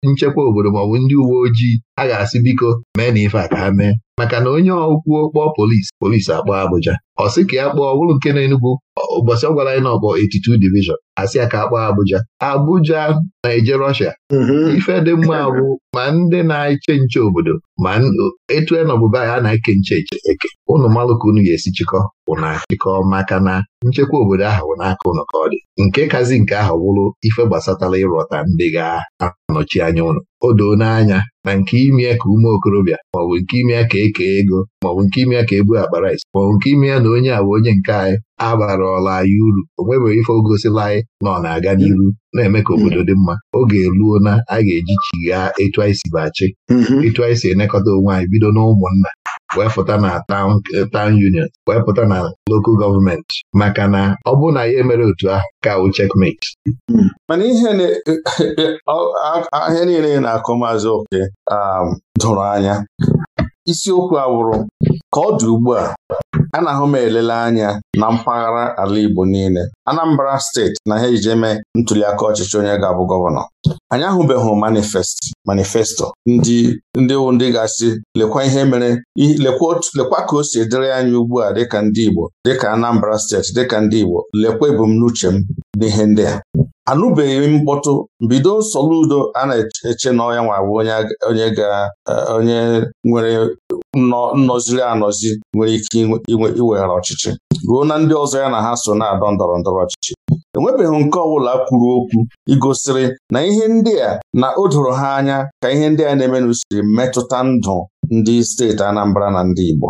Speaker 1: nchekwa obodo maọbụ ndị uwe ojii a ga-asị biko mee na ife a ka ha mee maka na onye ọkwuo kpọọ polisi polisi akpọọ Abụja. ọ sị ka ya kpọọ ọ bụrụ nke na-enugwu ụbọchị ọ gwara anyị na ọkpọ divishọn asị ya ka akpọọ Abụja. Abuja na-eje Russia mm-hmm. ife dị mma bụ ma ndị na-eche nche obodo ma etu enọbụba ya na-eke nche eche eke ụnụ unu ga-esi chịkọ bụ na chịkọ maka na nchekwa obodo ahụ n'aka ụnụ ka ọ dị nke imekazi nke ahụ wụrụ ife gbasatala ịrọta ndị ga-anọchi anya ụlọ o doo n'anya na nke ime ka ume okorobịa maọbụ nke ime ka eke ego maọbụ nke ime ka ebu akpara isi maọbụ nke ime na onye a bụ onye nke anyị abarala anyị uru o nwebeghị ife ogosila anyị na ọ na-aga n'iru na-eme ka obodo dị mma oge eruo na a ga-eji chighaa etu anyị si bachi mhm. etu anyị si elekọta onwe anyị bido n'ụmụnna wee pụta na eh, town union wee pụta na local Government maka na ọ bụ na ya mere otu ahụ ka wụ checkmate
Speaker 2: mana ihe ahịa eh, eh, niile na-akụ maazị oke um, dụrụ anya isiokwu awụrụ Ka ọ dị ugbu a anahụ m elele anya na mpaghara ala Igbo niile Anambra steeti na ha ejeme ntuliaka ọchịchị onye ga-abụ gọvanọ anyị ahụbeghị manifesti manifesto ndị ndị ndị gasị lekwa ihe mere lekwa ka o si dịrị anyị ugbu a dịka ndị Igbo dịka Anambra steeti dịka ndị Igbo lekwa ebumnuche m n'ihe ndị a anụbeghị mkpọtụ mbido nsọlụ udo a na-eche na nwa bụ onye onye nwere nnọziri anọzi nwere ike iweghara ọchịchị ruo na ndị ọzọ ya na ha so na-adọ ndọrọ ndọrọ ọchịchị enwebeghị nke ọbụla kwuru okwu igosiri na ihe ndị a na o doro ha anya ka ihe ndị a na-eme n'usiri metụta ndụ ndị steeti Anambra na ndị Igbo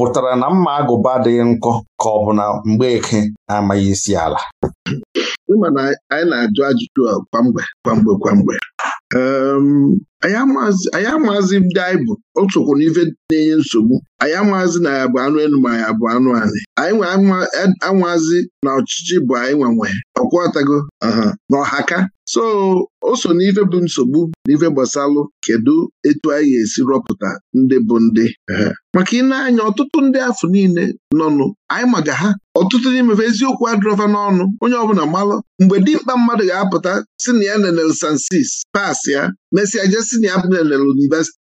Speaker 2: pụtara na mma agụba adịghị nkọ ka ọ bụ na Mgbeke na-amaghị isi ala
Speaker 4: ịma na anyị na-ajụ ajụjụ a kwamgbe kwamgbe kwamgbe ehm, anyị amaazị ndị anyị bụ otukwu n'ife na-enye nsogbu anyị amaazị na ya bụ anụ elu ma ya bụ anụ anyị anyị anwaazị e, na ọchịchị bụ anyị nwanwe ọkwọtago na ọhaka so o so n'ife bụ nsogbu n'ife gbasalụ kedu etu anyị ga-esi rọpụta ndị bụ ndị maka ị na-anya ọtụtụ ndị afọ niile nọnụ anyị maga ha ọtụtụ n'imefe eziokwu adrọva n'ọnụ onye ọbụla malụ mgbe dimkpa mmadụ ga-apụta si na ya nenel sansis pas ya mesịa je si na ya nenel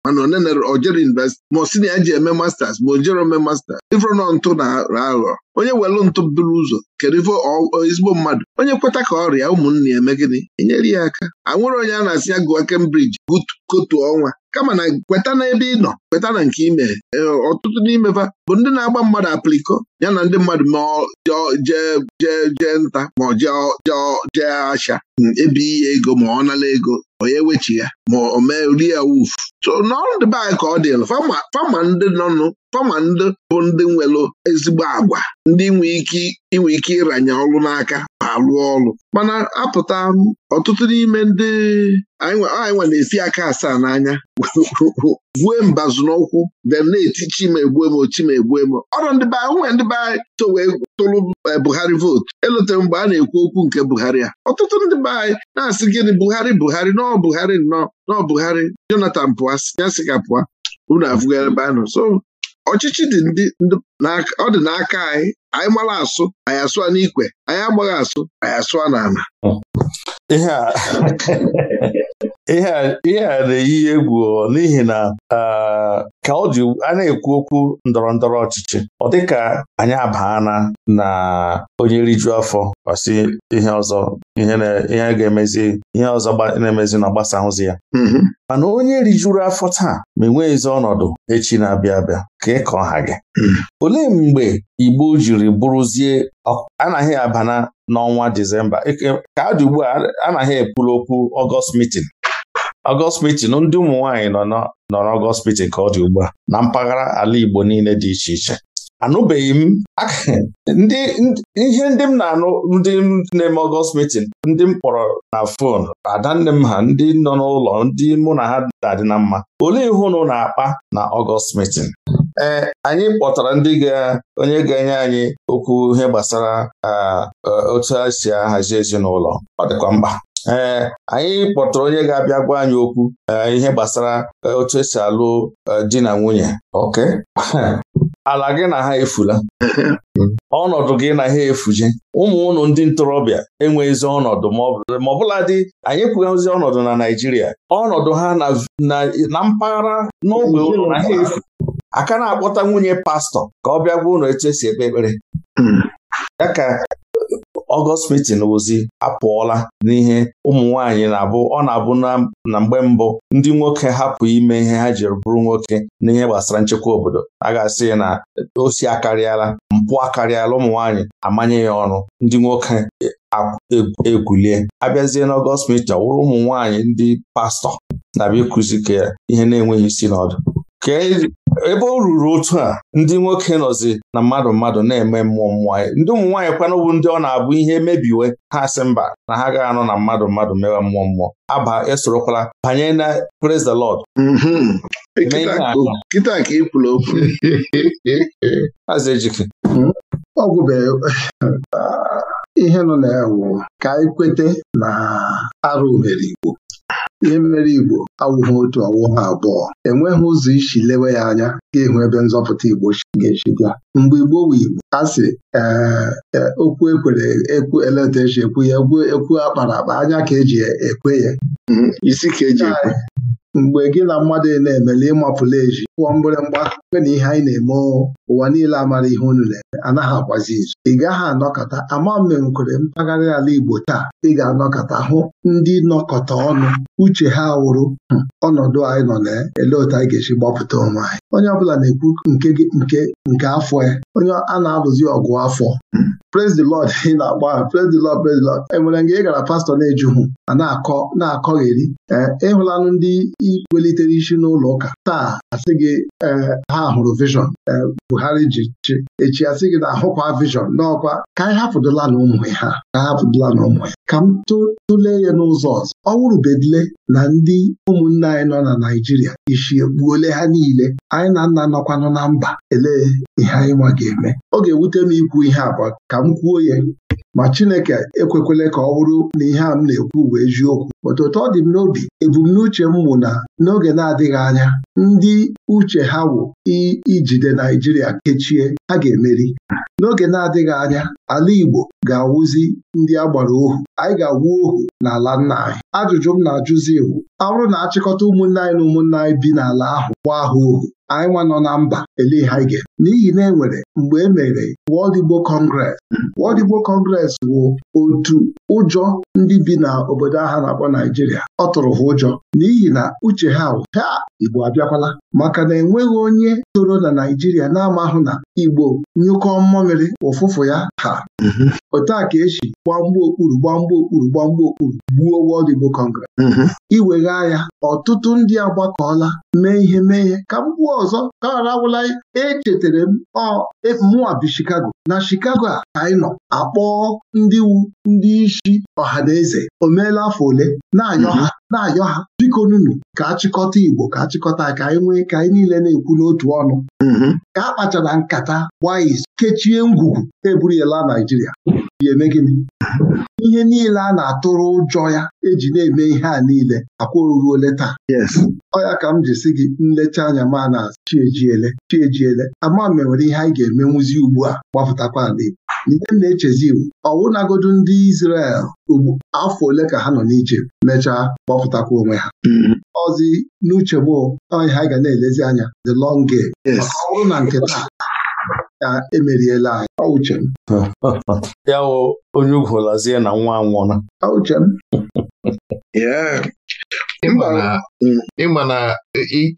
Speaker 4: mana onenere ojere universiti ma si na ya ji eme masters ma ojere ome masters ifro nọ ntụ na aghọ onye welụ ntụ bụrụ ụzọ kedu ezigbo mmadụ onye kweta ka ọrịa ụmụnne ya eme gịnị enyere ya aka anwụrụ onye a na-asị ya gụọ Cambridge kotu ọnwa kama na kweta na ebe ị nọ kweta na nke ime e, ọtụtụ n'ime n'imefa bụ ndị na-agba mmadụ apliko ya na ndị mmadụ ma jee nta ma ọ jee asha hmm, ebe ihe ego ma ọ nala ego onye wechi ya ma ọ mee rie wufu so n'ọrụ dị anyị ka ọ fama ndị nọnụ fama ndị bụ ndị nwere ezigbo agwa ndị nwee ike inwe ike ịranye ọrụ n'aka ma rụọ ọrụ mana apụta ọtụtụ n'ime ndị anyị nwa na-esi aka asaa n'anya gwue mbazụ n'ụkwụ bịa na-eti chimegbu m chimegbu m ọrụ ndị be nwee ndị be anyị tụrụ eh, Buhari vootu elotere mgbe a na-ekwu okwu nke Buhari a ọtụtụ ndị be anyị na-asị gịnị Buhari Buhari nọọ Buhari nnọọ nọọ Buhari Jonathan pụa ya sị pụa unu afụgara ebe anọ so ọchịchị dị ndị ọ dị n'aka anyị anyị mara asụ anyị asụa n'ikwe anyị agbaghị asụ anyị asụa n'ala
Speaker 2: ihe a na-eyi egwu n'ihi na ka ọ dị a na-ekwu okwu ndọrọ ndọrọ ọchịchị ọ dịka anyị abaana na onye rijuo afọ ọsị ihe ọzọ ihe ga-emezi ihe ọzọ na-emezi na ahụzi ya mm-hmm. mana onye rijuru afọ taa ma ezi ọnọdụ echi na-abịa abịa ka ịkọ ha gị mm-hmm. olee mgbe Igbo jiri bụrụzie anaghị abana n'ọnwa Disemba ka adị ugbu a anaghị ekwuru okwu ọgọst mitin Ọgọstpitin ndị ụmụ nwaanyị nọ nọrọ ọgọstpitin ka ọ dị ugbu a na mpaghara ala Igbo niile dị iche iche anụbeghị m ihe ndị m na-anụ ndị na-eme ọgọst meeting ndị m kpọrọ na fon adanne m ha ndị nọ n'ụlọ ndị mụ na ha dadị na mma olee ihe ụnụ na-akpa na ọgọst meeting ee eh, anyị kpọtara ndị ga onye ga-enye anyị okwu ihe gbasara ah, eh, otu esi si ahazi ezinụlọ ọ dịkwa mkpa ee eh, anyị kpọtara onye ga-abịa gwa anyị okwu eh, ihe gbasara eh, otu esi alụ di na nwunye ok ala gị na ha efula ọnọdụ gị na ha efuje ụmụ ụlọ ndị ntorobịa enweghịzi ọnọdụ ma ọbụla dị anyị kwughazi ọnọdụ na Naịjirịa ọnọdụ ha na mpaghara n'ogbe ụlọ na ha efu aka na-akpọta nwunye pastọ ka ọ bịa gwa ụlọ etu esi ekpe ekpere hmm. ya ka Ọgọst Meeting Ozi apụọla n'ihe ụmụ nwanyị na-abụ ọ na-abụ na mgbe mbụ ndị nwoke hapụ ime ihe ha jiri bụrụ nwoke n'ihe gbasara nchekwa obodo a ga-asị na osi akarịala mpụ akarịala ụmụ nwaanyị amanye ya ọnụ ndị nwoke egwulie abịazie n'ọgọst mita wụrụ ụmụ nwaanyị ndị pastọ na-abịa ka ihe na-enweghị isi n'ọdụ. ebe o ruru otu a ndị nwoke nọzi na mmadụ mmadụ na-eme mmụọ mmụọ ndị ụmụ nwaanyị kwanụbụ ndị ọ na-abụ ihe mebiwe ha si mba na ha agaghị anọ na mmadụ mmadụ mewe mmụọ mmụọ aba esorokwala banye na praise the Lord
Speaker 3: mm-hmm.
Speaker 2: kịta ka ikwula okwu
Speaker 3: ejike
Speaker 4: hmm? ọgwụ ah, ihe nọ na ya ka anyị na arụ ohere Igbo ihe mere Igbo awụghị otu ọwụghị abụọ enweghị ụzọ isi lewe ya anya ga-ehu ebe nzọpụta Igbo ga-esi bịa mgbe Igbo wu Igbo a sị e, okwu ekwere ekwu eleta ekwu ya ekwu akpara akpa anya ka eji e, ekwe ya mhm, isi ka eji ekwe mgbe gị na mmadụ na-emele ịmapụla eji pụọ mgbịrịmgba mgbe na ihe anyị na-eme ụwa niile amara ihe unu na-eme anaghị agbazi izu ị gaghị anọkọta ama mmenkwere mpaghara ala Igbo taa ị ga-anọkọta hụ ndị nọkọta ọnụ uche ha wụrụ ọnọdụ anyị nọ na elee otu anyị ga-esi gbapụta onwe anyị onye ọbụla na-ekwu nke nke nke afọ ya e, onye a na-alụzi ọgụ afọ praise the Lord ị na agba ha praise the Lord praise the Lord enwere mgbe ị gara pastọ na-ejuhụ a na-akọ na-akọgheri eh, ịhụlanụ ndị welitere isi n'ụlọ ụka taa asị gị e, ha hụrụ vishọn e, Buhari ji chi echi asị gị na ahụkwa vishọn n'ọkwa ka anyị hapụdụla na ụmụ ha ka hapụdụla na ụmụ ya ka m tụlee ya n'ụzọ ọzọ ọ wụrụbedile na ndị ụmụnne anyị nọ na naijiria isi ekpuole ha niile anyị na nna nọkwanụ na mba elee ihe anyị nwa ga-eme ọ ga-ewute m ikwu ihe abụọ ka m kwuo ya ma Chineke ekwekwele ka ọ bụrụ na ihe a m na-ekwu bụ eziokwu otu ọ dị m n'obi ebumnuche m mụ na n'oge na-adịghị anya ndị uche ha wụ ijide Naijiria kechie ha ga-emeri n'oge na-adịghị anya ala Igbo ga-awụzi ndị a gbara ohu anyị ga awụ ohu n'ala nna anyị ajụjụ m na-ajụzi iwu ọrụ na-achịkọta ụmụnne anyị na ụmụnne anyị bi n'ala ahụ gba ahụ ohu anyị nwa nọ na mba ele ha ga n'ihi na enwere mgbe e mere World Igbo Congress World Igbo wụ otu ụjọ ndị bi n'obodo ahụ na-akpọ Naijiria ọ tụrụ ha ụjọ n'ihi na uche ha ha Igbo abịa agarakwala maka na enweghị onye toro na Naijiria na-amahụ na Igbo nyụkọ mmamịrị ụfụfụ ya ha mm-hmm. otu a ka esi gbamgbu okpuru gbamgbu okpuru gbamgbu okpuru gbuo Wọld Igbo Congress mm-hmm. iwegha ya ọtụtụ ndị agbakọọla mee ihe mee ihe ka m gbuo ọzọ ka arawụla echetara m e, mụwa bi na chikago a ka anyị nọ akpọọ ndị wu ndị isi ọha na eze o meela afọ ole na-anyọ ha mm-hmm. na-anyọ ha biko nunu ka achịkọta Igbo ka achịkọta ka anyị nwee ka anyị niile na-ekwu n'otu ọnụ mm-hmm. ka a kpachara nkata gbaa kechie ngwugwu eburu ya Naijiria ga eme gịnị ihe niile a na-atụrụ ụjọ ya eji na-eme ihe a niile akwa oruole taa ọ ya ka m ji si gị nlecha anya ma na chiejiele chiejiele ama e ihe anyị ga-emenwuzi ugbu a gbapụtakwa ala Igbo ihe m na-echezi ọwụnagodu ndị Izrel ugbu afọ ole ka ha nọ n'Ijipt mechaa kpọpụtakwa onwe ha ọzi mm-hmm. n'uchegbu bụ anyị ha ga na-elezi anya the long game ọ na nke taa ka emeriela anyị ọ uche m
Speaker 2: ya onye ugwu lazie na nwa anwụọla ọ uche m ịma na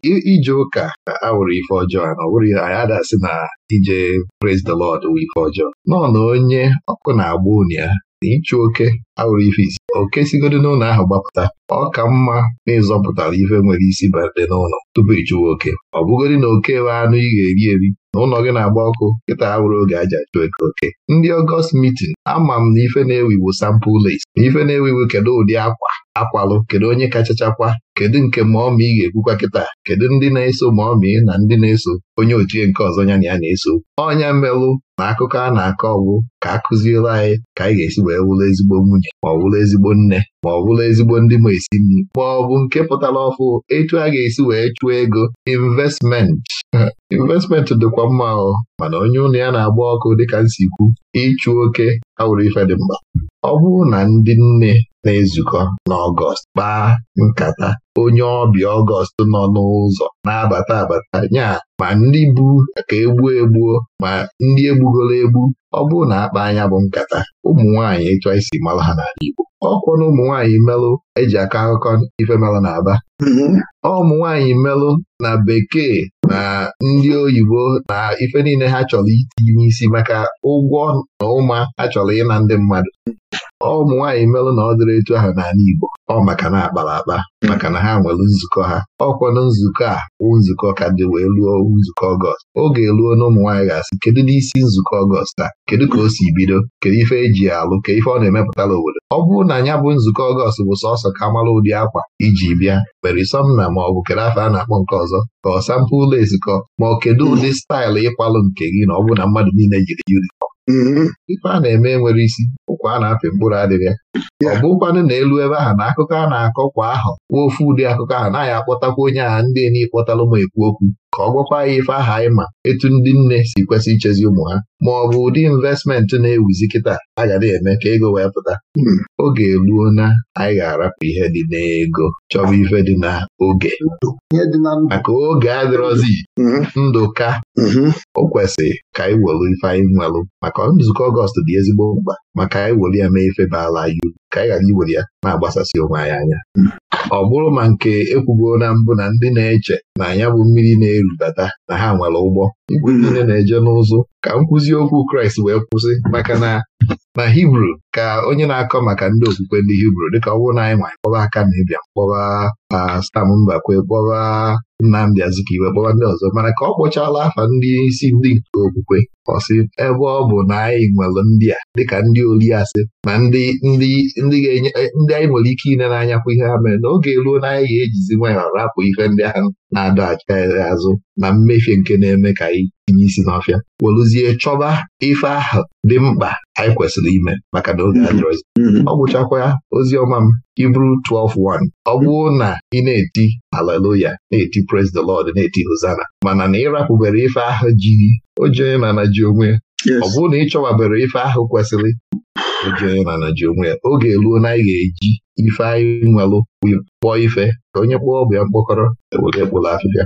Speaker 1: ije ụka awụrụ ife ọjọọ na ọ bụrụ ya anyị adasị na ije praise the Lord wụ ife ọjọọ nọ na onye ọkụ na-agba unu ya na ịchụ oke awụrụ ife isi oke sigodi n'ụlọ ahụ gbapụta ọ ka mma na ịzọpụtara ife nwere isi bade n'ụlọ tupu ịchụwa oke ọ bụgodi na oke wee anụ ị ga-eri eri n'ụlọ gị na-agba ọkụ kịta ha were oge aja jụ eke oke ndị ọgọst mitin ama m na ife na-ewiwu sampụl les na ife na iwu kedu ụdị akwa akwalụ kedu onye kachachakwa kedu nke maọma ị ga-ekwukwa kịta kedu ndị na-eso ị na ndị na-eso onye ochie nke ọzọ ya na ya na-eso ọnya melụ na akụkọ a na-akọ ọgwụ ka a kụziere anyị ka anyị ga-esi wee wụrụ ezigbo nwunye ma ọ wụrụ ezigbo nne ma ọ wụrụ ezigbo ndị ma esi nri ma ọ bụ nke pụtara ọfụ etu a ga-esi wee chụọ ego investmenti investmenti dịkwa mma ahụ mana onye ụlọ ya na-agba ọkụ dịka nsikwu ịchụ oke awụrụ ife dị mma ọ bụrụ na ndị nne na-ezukọ n'Ọgọst kpaa nkata onye ọbịa Ọgọst nọ n'ụzọ na-abata abata nya ma ndị bụ ka egbuo egbuo ma ndị egbugoro egbu ọ bụrụ na akpa anya bụ nkata ụmụ nwaanyị ịchọ isi mara ha n'ala Igbo ọkwọ na ụmụ melụ eji akọ akụkọ ife melụ na Aba mm-hmm. ụmụ nwaanyị melụ na bekee na ndị oyibo na ife niile ha chọrọ itinye n'isi maka ụgwọ na ụma ha chọrọ ịna ndị mmadụ ụmụ nwaanyị melụ na ọ dịrị etu ahụ n'ala Igbo ọ maka na akpara akpa maka na ha nwere nzukọ ha ọkwanụ nzukọ a wụ nzukọ ka dị wee ruo nzukọ ọgọst oge eruo na ụmụ ga-asị kedu n'isi nzukọ ọgọst a kedu ka o si bido kedu ife eji alụ ka ife ọ na-emepụtara obodo ọ bụrụ na ya bụ nzukọ ọgọst bụ sọsọ ka mara ụdị akwa iji bịa mere somna ma ọ bụ kedu afọ a na-akpọ nke ọzọ ka ọ sampụ ụlọ ezikọ ma ọ kedu ụdị staịlụ ịkwalụ nke gị na ọ bụ na mmadụ niile jiri yunifọm Mm-hmm. ife a na-eme nwere isi ụkwa a na-apị mkpụrụ adịrị ya ọ bụkwanụ na elu ebe ahụ na akụkọ a na-akọ kwa ahụ nwa ofu ụdị akụkọ ahụ anaghị akpọtakwa onye a ndị n'ịkpọtalụ ma ekwu okwu ka ọ gwakwa ya ife aha anyị ma etu ndị nne si kwesị ichezi ụmụ ha ma ọ bụ ụdị investmenti na-ewuzi kịta a ga na-eme ka ego wee pụta hmm. oge eruo na anyị ga-arapụ ihe dị n'ego chọba ife dị na oge maka oge adịrọzi hmm. ndụ ka hmm. o kwesịrị ka anyị welu ife anyị nwelụ maka nzukọ Ọgọst dị ezigbo mkpa maka anyị welu ya mee ife baala anyị ka anyị ghara iwere ya ma agbasasị onwe anyị anya ọ bụrụ ma nke ekwugoro na mbụ na ndị na-eche na ya bụ mmiri na-erubata na ha nwere ụgbọ igwe niile na-eje n'ụzụ ka nkwụzi okwu Kraịst wee kwụsị maka na na Hibru ka onye na-akọ maka ndị okwukwe ndị Hibru dịka ọ bụrụ na anyị nwanyị kpọba aka na ịbịa kpọba Stam Mbakwe kpọba Nnamdi Azikiwe kpọba ndị ọzọ mana ka ọ kpọchala afa ndị isi ndị nke okwukwe ọsị ebe ọ bụ na anyị nwere ndị a dịka ndị oli asị na ndị ndị ndị e, ndị anyị nwere ike ine n'anya kwa ihe ha mere n'oge ruo na anyị ga-ejizi nwayọọ rapụ ihe ndị ahụ na-adọ acha azụ na mmefie nke na-eme ka anyị tinye isi n'ọfịa welụzie chọba ife ahụ dị mkpa anyị kwesịrị ime maka na oge adịrọzi mm-hmm. mm-hmm. ọ gwụchakwa ozi ọma m Hibru 12:1 ọ bụrụ na ị na-eti aleluya na-eti praise the Lord na-eti hosana mana na ịrapụbere ife ahụ ji oji onye na ji onwe ọ bụrụ na ị chọwabere ife ahụ kwesịrị oji onye ji onwe ya oge eluo na anyị ga-eji Ifeanyị nwelụ kpọọ ife ka onye kpọọ bụ ya mkpọkọrọ ewere e
Speaker 3: afịfịa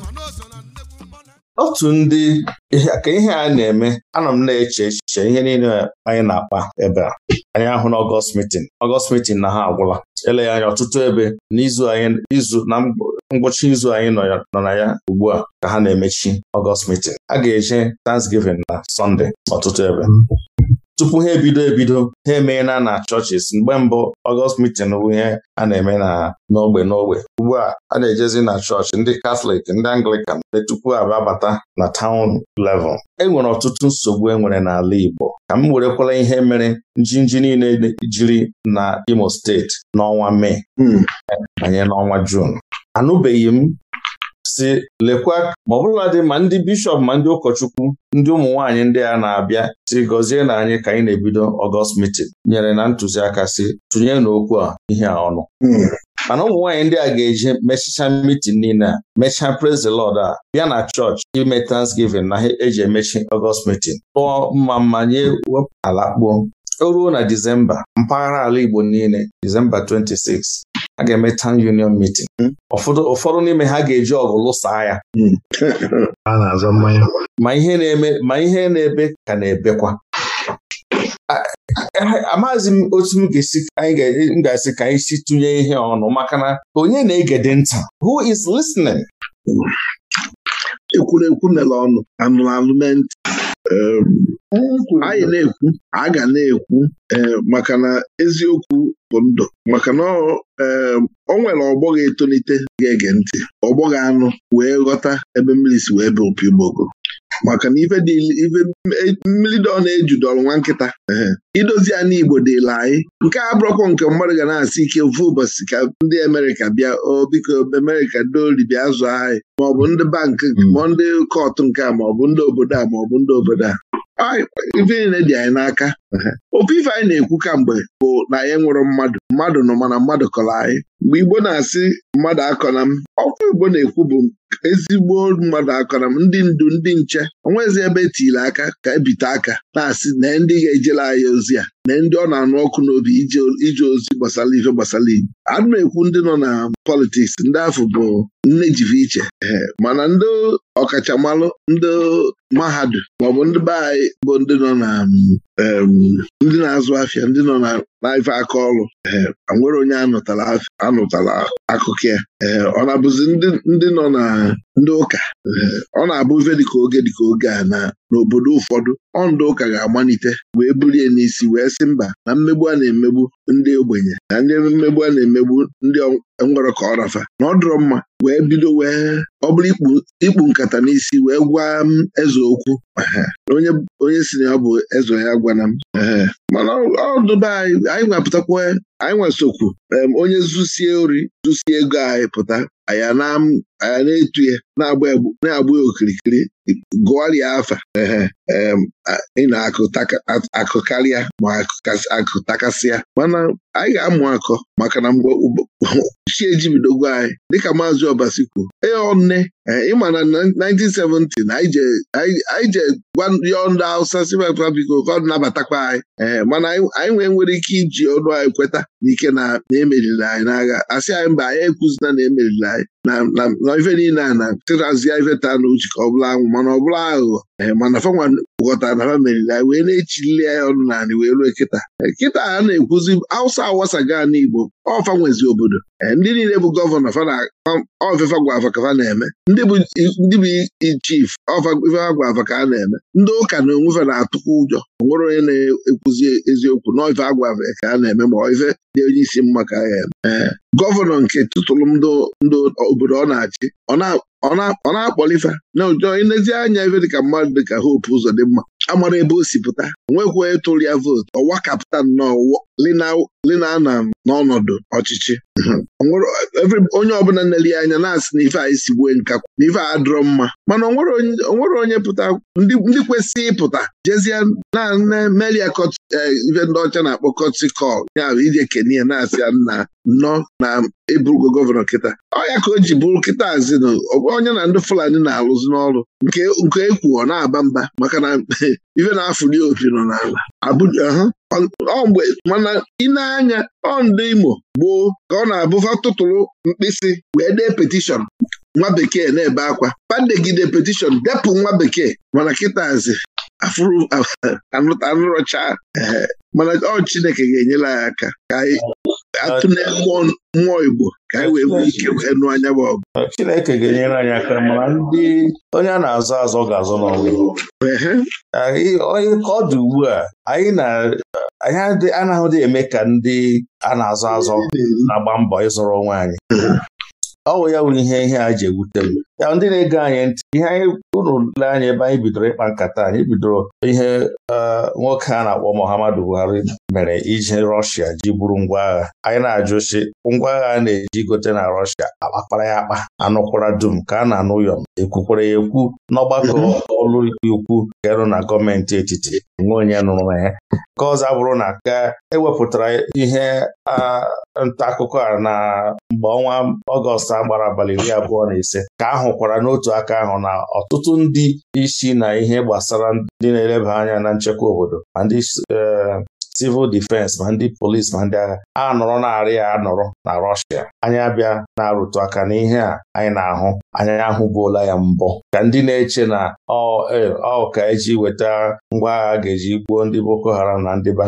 Speaker 2: otu ndị ka ihe a na-eme anọ m na-eche echiche ihe niile anyị na-akpa ebe a anyị ahụ na ọgọst mitin ọgọst mitin na ha agwụla ele anya ọtụtụ ebe n'izu anyị izu na ngwụcha izu anyị nọ na ya ugbu a ka ha na-emechi ọgọst mitin a ga-eje Thanksgiving na Sọnde ọtụtụ ebe tupu ha ebido ebido ha emeela na chọọchịs mgbe mbụ ọgọst mitin bụ ihe a na-eme na n'ogbe n'ogbe ugbu a a na-ejezi na chọọchị ndị katọlik ndị anglikan dị e tupu ababata na taụn level enwere ọtụtụ nsogbu enwere n'ala Igbo ka m werekwala ihe mere njinji niile jiri na Imo steeti n'ọnwa Mee hmm. banye n'ọnwa jun anụbeghị m si lekwa ma dị ma ndị bishọp ma ndị ụkọchukwu ndị ụmụ nwanyị ndị a na-abịa si gọzie na anyị ka anyị na-ebido ọgọst mitin nyere na ntụziaka si tụnye n'okwu a ihe a ọnụ hmm. mana ụmụ nwaanyị ndị a ga-eji mechicha mitin niile a mechaa praise lọd a bịa na chọọchị ime transgivin na ha eji emechi ọgọst mitin tụọ mma mmanye ala kpuo o ruo na Disemba mpaghara ala Igbo niile Disemba 26 a ga-eme town union meeting hmm. ụfọdụ n'ime ha ga-eji ọgụ lụsaa ya hmm. ma ihe na-eme ma ihe na-ebe ka na-ebekwa amaghịzi m otu m ga-esi ka anyị si tụnye ihe ọnụ maka na onye na-egede nta? who is listening? Hmm.
Speaker 4: ekwurekwu mere ọnụ anyị na-ekwu a ga na-ekwu maka na eziokwu bụ ndụ maka na ọ nwere ọgbọ ga-etolite ga-ege ntị ọgbọ anụ wee ghọta ebe mmiri si wee bụ opi maka na ife mmiri dọ na-ejudọrọ nwa nkịta idozi anụ Igbo dịla anyị nke a bụrọkwa nke mmadụ ga na-asị ike ofu ụbọchị ka ndị Amerịka bịa o Amerịka doli bịa azụ anyị maọbụ ndị bankị hmm. ma ndị kọtụ nke a maọbụ ndị obodo a maọbụ ndị obodo a ife dị anyị n'aka ofe ife anyị na-ekwu kamgbe bụ na anyị nwụrụ mmadụ mmadụ nọ mana mmadụ kọrọ anyị mgbe Igbo na-asị mmadụ akọna m ọkwa Igbo na-ekwu bụ ezigbo mmadụ akọna m ndị ndu ndị nche onwezi ebe etiri aka ka ebite aka na-asị na ndị ga-ejela anyị ozi a na ndị ọ na-anụ ọkụ n'obi ije ozi gbasara ife gbasara igbo ana m ekwu ndị nọ na politiks ndị afọ bụ nne jive iche mana ndị ọkachamalụ ndị mahadum maọbụ ndị be anyị bụ ndị nọ na mm, ndị na-azụ afịa ndị nọ na n'ife aka ọrụ ee eh, nwere onye anụtala akụkọ ya ee eh, ọ na-abụzi ndị nọ na ndị ụka eh, ọ na-abụ dị dịka oge dịka oge a na n'obodo ụfọdụ ọ ndị ụka ga-agbanite wee bulie n'isi wee sị mba na mmegbu a na-emegbu ndị ogbenye na ndị mmegbu a na-emegbu ndị enwere ka ọ rafa na ọ dọrọ mma wee bido wee ọ bụrụ ikpu nkata n'isi wee gwa m um, eze okwu onye si na ya bụ eze ya gwana m mana ọdụba anyị anyị nwapụtakwa anyị nwesokwu onye zusie ori zusie ego anyị pụta anyị na-etu ya na-agba ya okirikiri gụọrịa afa ị na-akụ ma akụ takasịa mana anyị ga-amụ akọ maka na mgbe chi ejibidogo anyị dịka maazị ọbasi kwuo, ee ọnne eh, ịma na 1970 na anyị je gwa yọọ ndị Hausa sibata biko ka ọ nabatakwa anyị ee eh, mana anyị nwee nwere ike iji ọnụ anyị kweta n'ike na emeriri anyị n'agha asị anyị mba anyị ekwuzina na emeriri anyị na ife niile a na tịrazie ife taa n'uche ka ọ bụla anwụ mana ọ bụla aghụghọ Eh, manafanwa gwọtara na famili na wee na-echilile ya ọnụ naanị wee ruo kịta eh, kịta a na-ekwuzi awụsa awasaga n'igbo ọfa nwezi obodo eh, ndị niile bụ gọvanọ ofefa gwafa ka fa na-eme ndị bụ chief ofefa gwafa ka a na-eme ndị ụka na onwefe na-atụkwa ụjọ nwere onye na-ekwuzi eziokwu na ofe agwafe ka a na-eme ma ofe dị onye isi mma ka a ga-eme gọvanọ nke tụtụrụ ndị obodo ọ na-achị ọ na ọ na-akpọlifa na ụjọ anya ebe dịka mmadụ dịka hope ụzọ dị mma amara ebe o si pụta nwekwa ịtụrụ ya vootu ọwa kaptan lina na n'ọnọdụ ọchịchị onye ọbụla nleli anya na-asị na ife a esigbue nkakwu na ife a dụrọ mma mana onwere onye pụta ndị kwesị ịpụta jezie na melia eh, ife ndị ọcha na-akpọ kọtikọl ya bụ ije kenia na-asị ya nna nnọọ na ịbụrụgo gọvanọ kịta ọya ka o ji bụrụ kịta zinụ onye na ndị fulani na-alụzi n'ọrụ nke ekwu e ọ na-aba mba maka na ife na-afụli opi nọ n'ala mgbe mana ịna-anya ọ ndị Imo gboo ka ọ na-abụfa tụtụrụ mkpịsị wee dee petishọn nwa bekee na-ebe akwa padegide petishọn depụ nwa bekee mana kịtazi afụrụ anụrọcha mana ọ Chineke ga-enyere ya aka ka atụ na-egbu mmụọ Igbo ka anyị wee nwee ike wee nụ anya bụ ọgụ
Speaker 2: Chineke ga-enyere anyị aka mana ndị onye a na-azọ azọ ga-azọ n'ọnwụ onye ka ọ dị ugbu a anyị na anaghị eme ka ndị a na-azọ azọ na-agba mbọ ịzụrụ onwe anyị ọ bụ ya wụ ihe ihe a ji ewute m ya ndị na-ege anyị ntị ihe anyị unu le anyị ebe anyị bidoro ịkpa nkata anyị bidoro ihe e, nwoke a na-akpọ Muhammadu Buhari mere iji Rọshia ji bụrụ ngwa agha anyị na-ajụsi ngwa agha a na-eji gote na Rọshia akpakpara ya akpa anụkwara dum ka a na-anụ ụyọm ekwukwara ya ekwu n'ọgbakọ mhm. ọlụikpe ukwu garụ na gọọmenti etiti nwe onye nụrụ na ya nke ọzọ bụrụ na ka ewepụtara ihe nta akụkọ a na mgbe ọnwa Ọgọst agbara abalị iri abụọ na ise ka a hụkwara n'otu aka ahụ na ọtụtụ ndị isi na ihe gbasara ndị na-eleba anya na nchekwa obodo ma ndị eh, civil defense ma ndị polis ma ndị agha a nọrọ narị ya anọrọ na Rọshia anyị abịa na-arụtụ aka n'ihe a anyị na-ahụ anyị ahụbuola ya mbụ ka ndị na-eche na ọ eh, ka eji weta ngwa agha ga-eji gbuo ndị Boko Haram na ndị na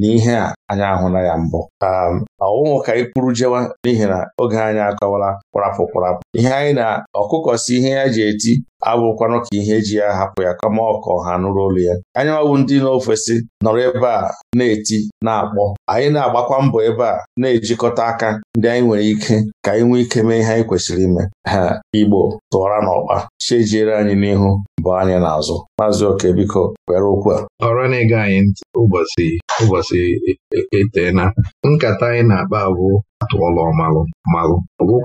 Speaker 2: n'ihe a anyị na ya mbụ um, ọnwụnwụ ka anyị kwuru jewa n'ihi na oge anyị akọwala kwarapụ kwarapụ ihe anyị na ọkụkọ si ihe ya ji eti abụrụkwanụ ka ihe eji ya hapụ ya kama ọkọ ha nụrụ olu ya anya ndị n'ofesi nọrọ ebe a na-eti na-akpọ anyị na-agbakwa mbọ ebe a na-ejikọta aka ndị anyị nwere ike ka anyị nwee ike mee ihe anyị kwesịrị ime ha Igbo tụwara n'ọkpa chejiere anyị n'ihu bụ anyị n'azụ maazị oke biko were okwu a ọrụ na-ege anyị ụbọchị ụbọchị e, e, e, etena nkata anyị na-akpa abụ
Speaker 1: atụọla ọmalụ malụ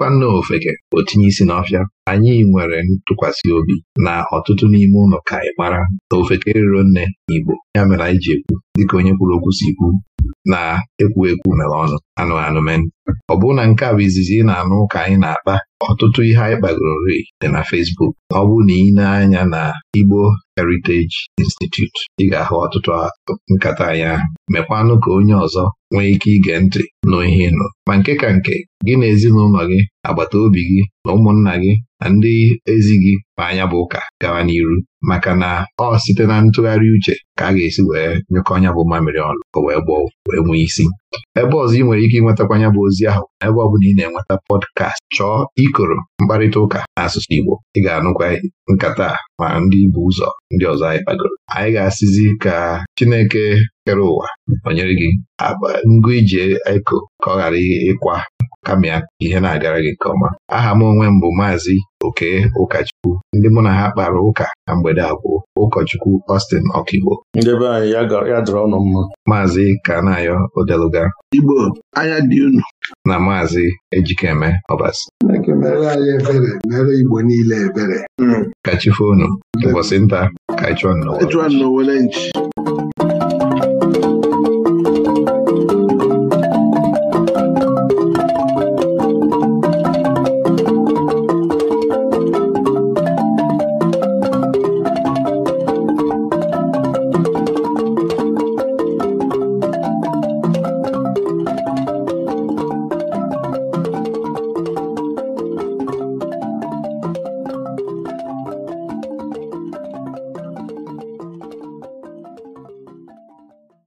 Speaker 1: ọ nne ofeke otinye isi isi n'ọfịa anyị nwere ntụkwasị obi na ọtụtụ n'ime ụlọ ka ị mara na ofeke riro nne igbo ya mere anyị ji ekwu dịka onye kwuru okwu si kwu na-ekwu ekwu mere ọnụ anụ anụmen ọ bụrụ na nke a bụ izizi ị na-anụ ka anyị na-akpa ọtụtụ ihe anyị kpagorori dị na Fesbuk Facebook ọ bụ na ị na-anya na Igbo Heritage Institute ị ga-ahụ ọtụtụ nkata anyị ahụ mekwanụ ka onye ọzọ nwee ike ige ntị nụ ihe nụ ma nke ka nke gị na ezinụlọ gị agbata obi gị na ụmụnna gị na ndị ezi gị ma anya bụ ụka gawa n'iru maka na ọ site na ntụgharị uche ka a ga-esi wee nyekọ ọnya bụ mamiri ọnụ o wee gbọọ wee nwee isi ebe ọzọ ị nwere ike ịnwetakwa anya bụ ozi ahụ ebe ọ bụla ị na-enweta pọdkast chọọ ikoro mkparịta ụka n'asụsụ Igbo ị ga-anụkwa nkata ma ndị bụ ụzọ ndị ọzọ anyị kpagoro anyị ga-asịzi ka Chineke kere ụwa nọnyere gị ngụ ije eko ka ọ ghara ịkwa kama ihe na-agara gị nke ọma aha m onwe m bụ maazị oke ụkọchukwu ndị mụ na ha kpara ụka na mgbede akwụ ụkọchukwu Austin Okigbo
Speaker 2: maazị ayọ Odeluga Igbo anya dị unu na
Speaker 1: maazị Ejikeme Ọbasi
Speaker 4: Igbo niile ebere.
Speaker 1: ka chi ụbọchị nta
Speaker 4: ka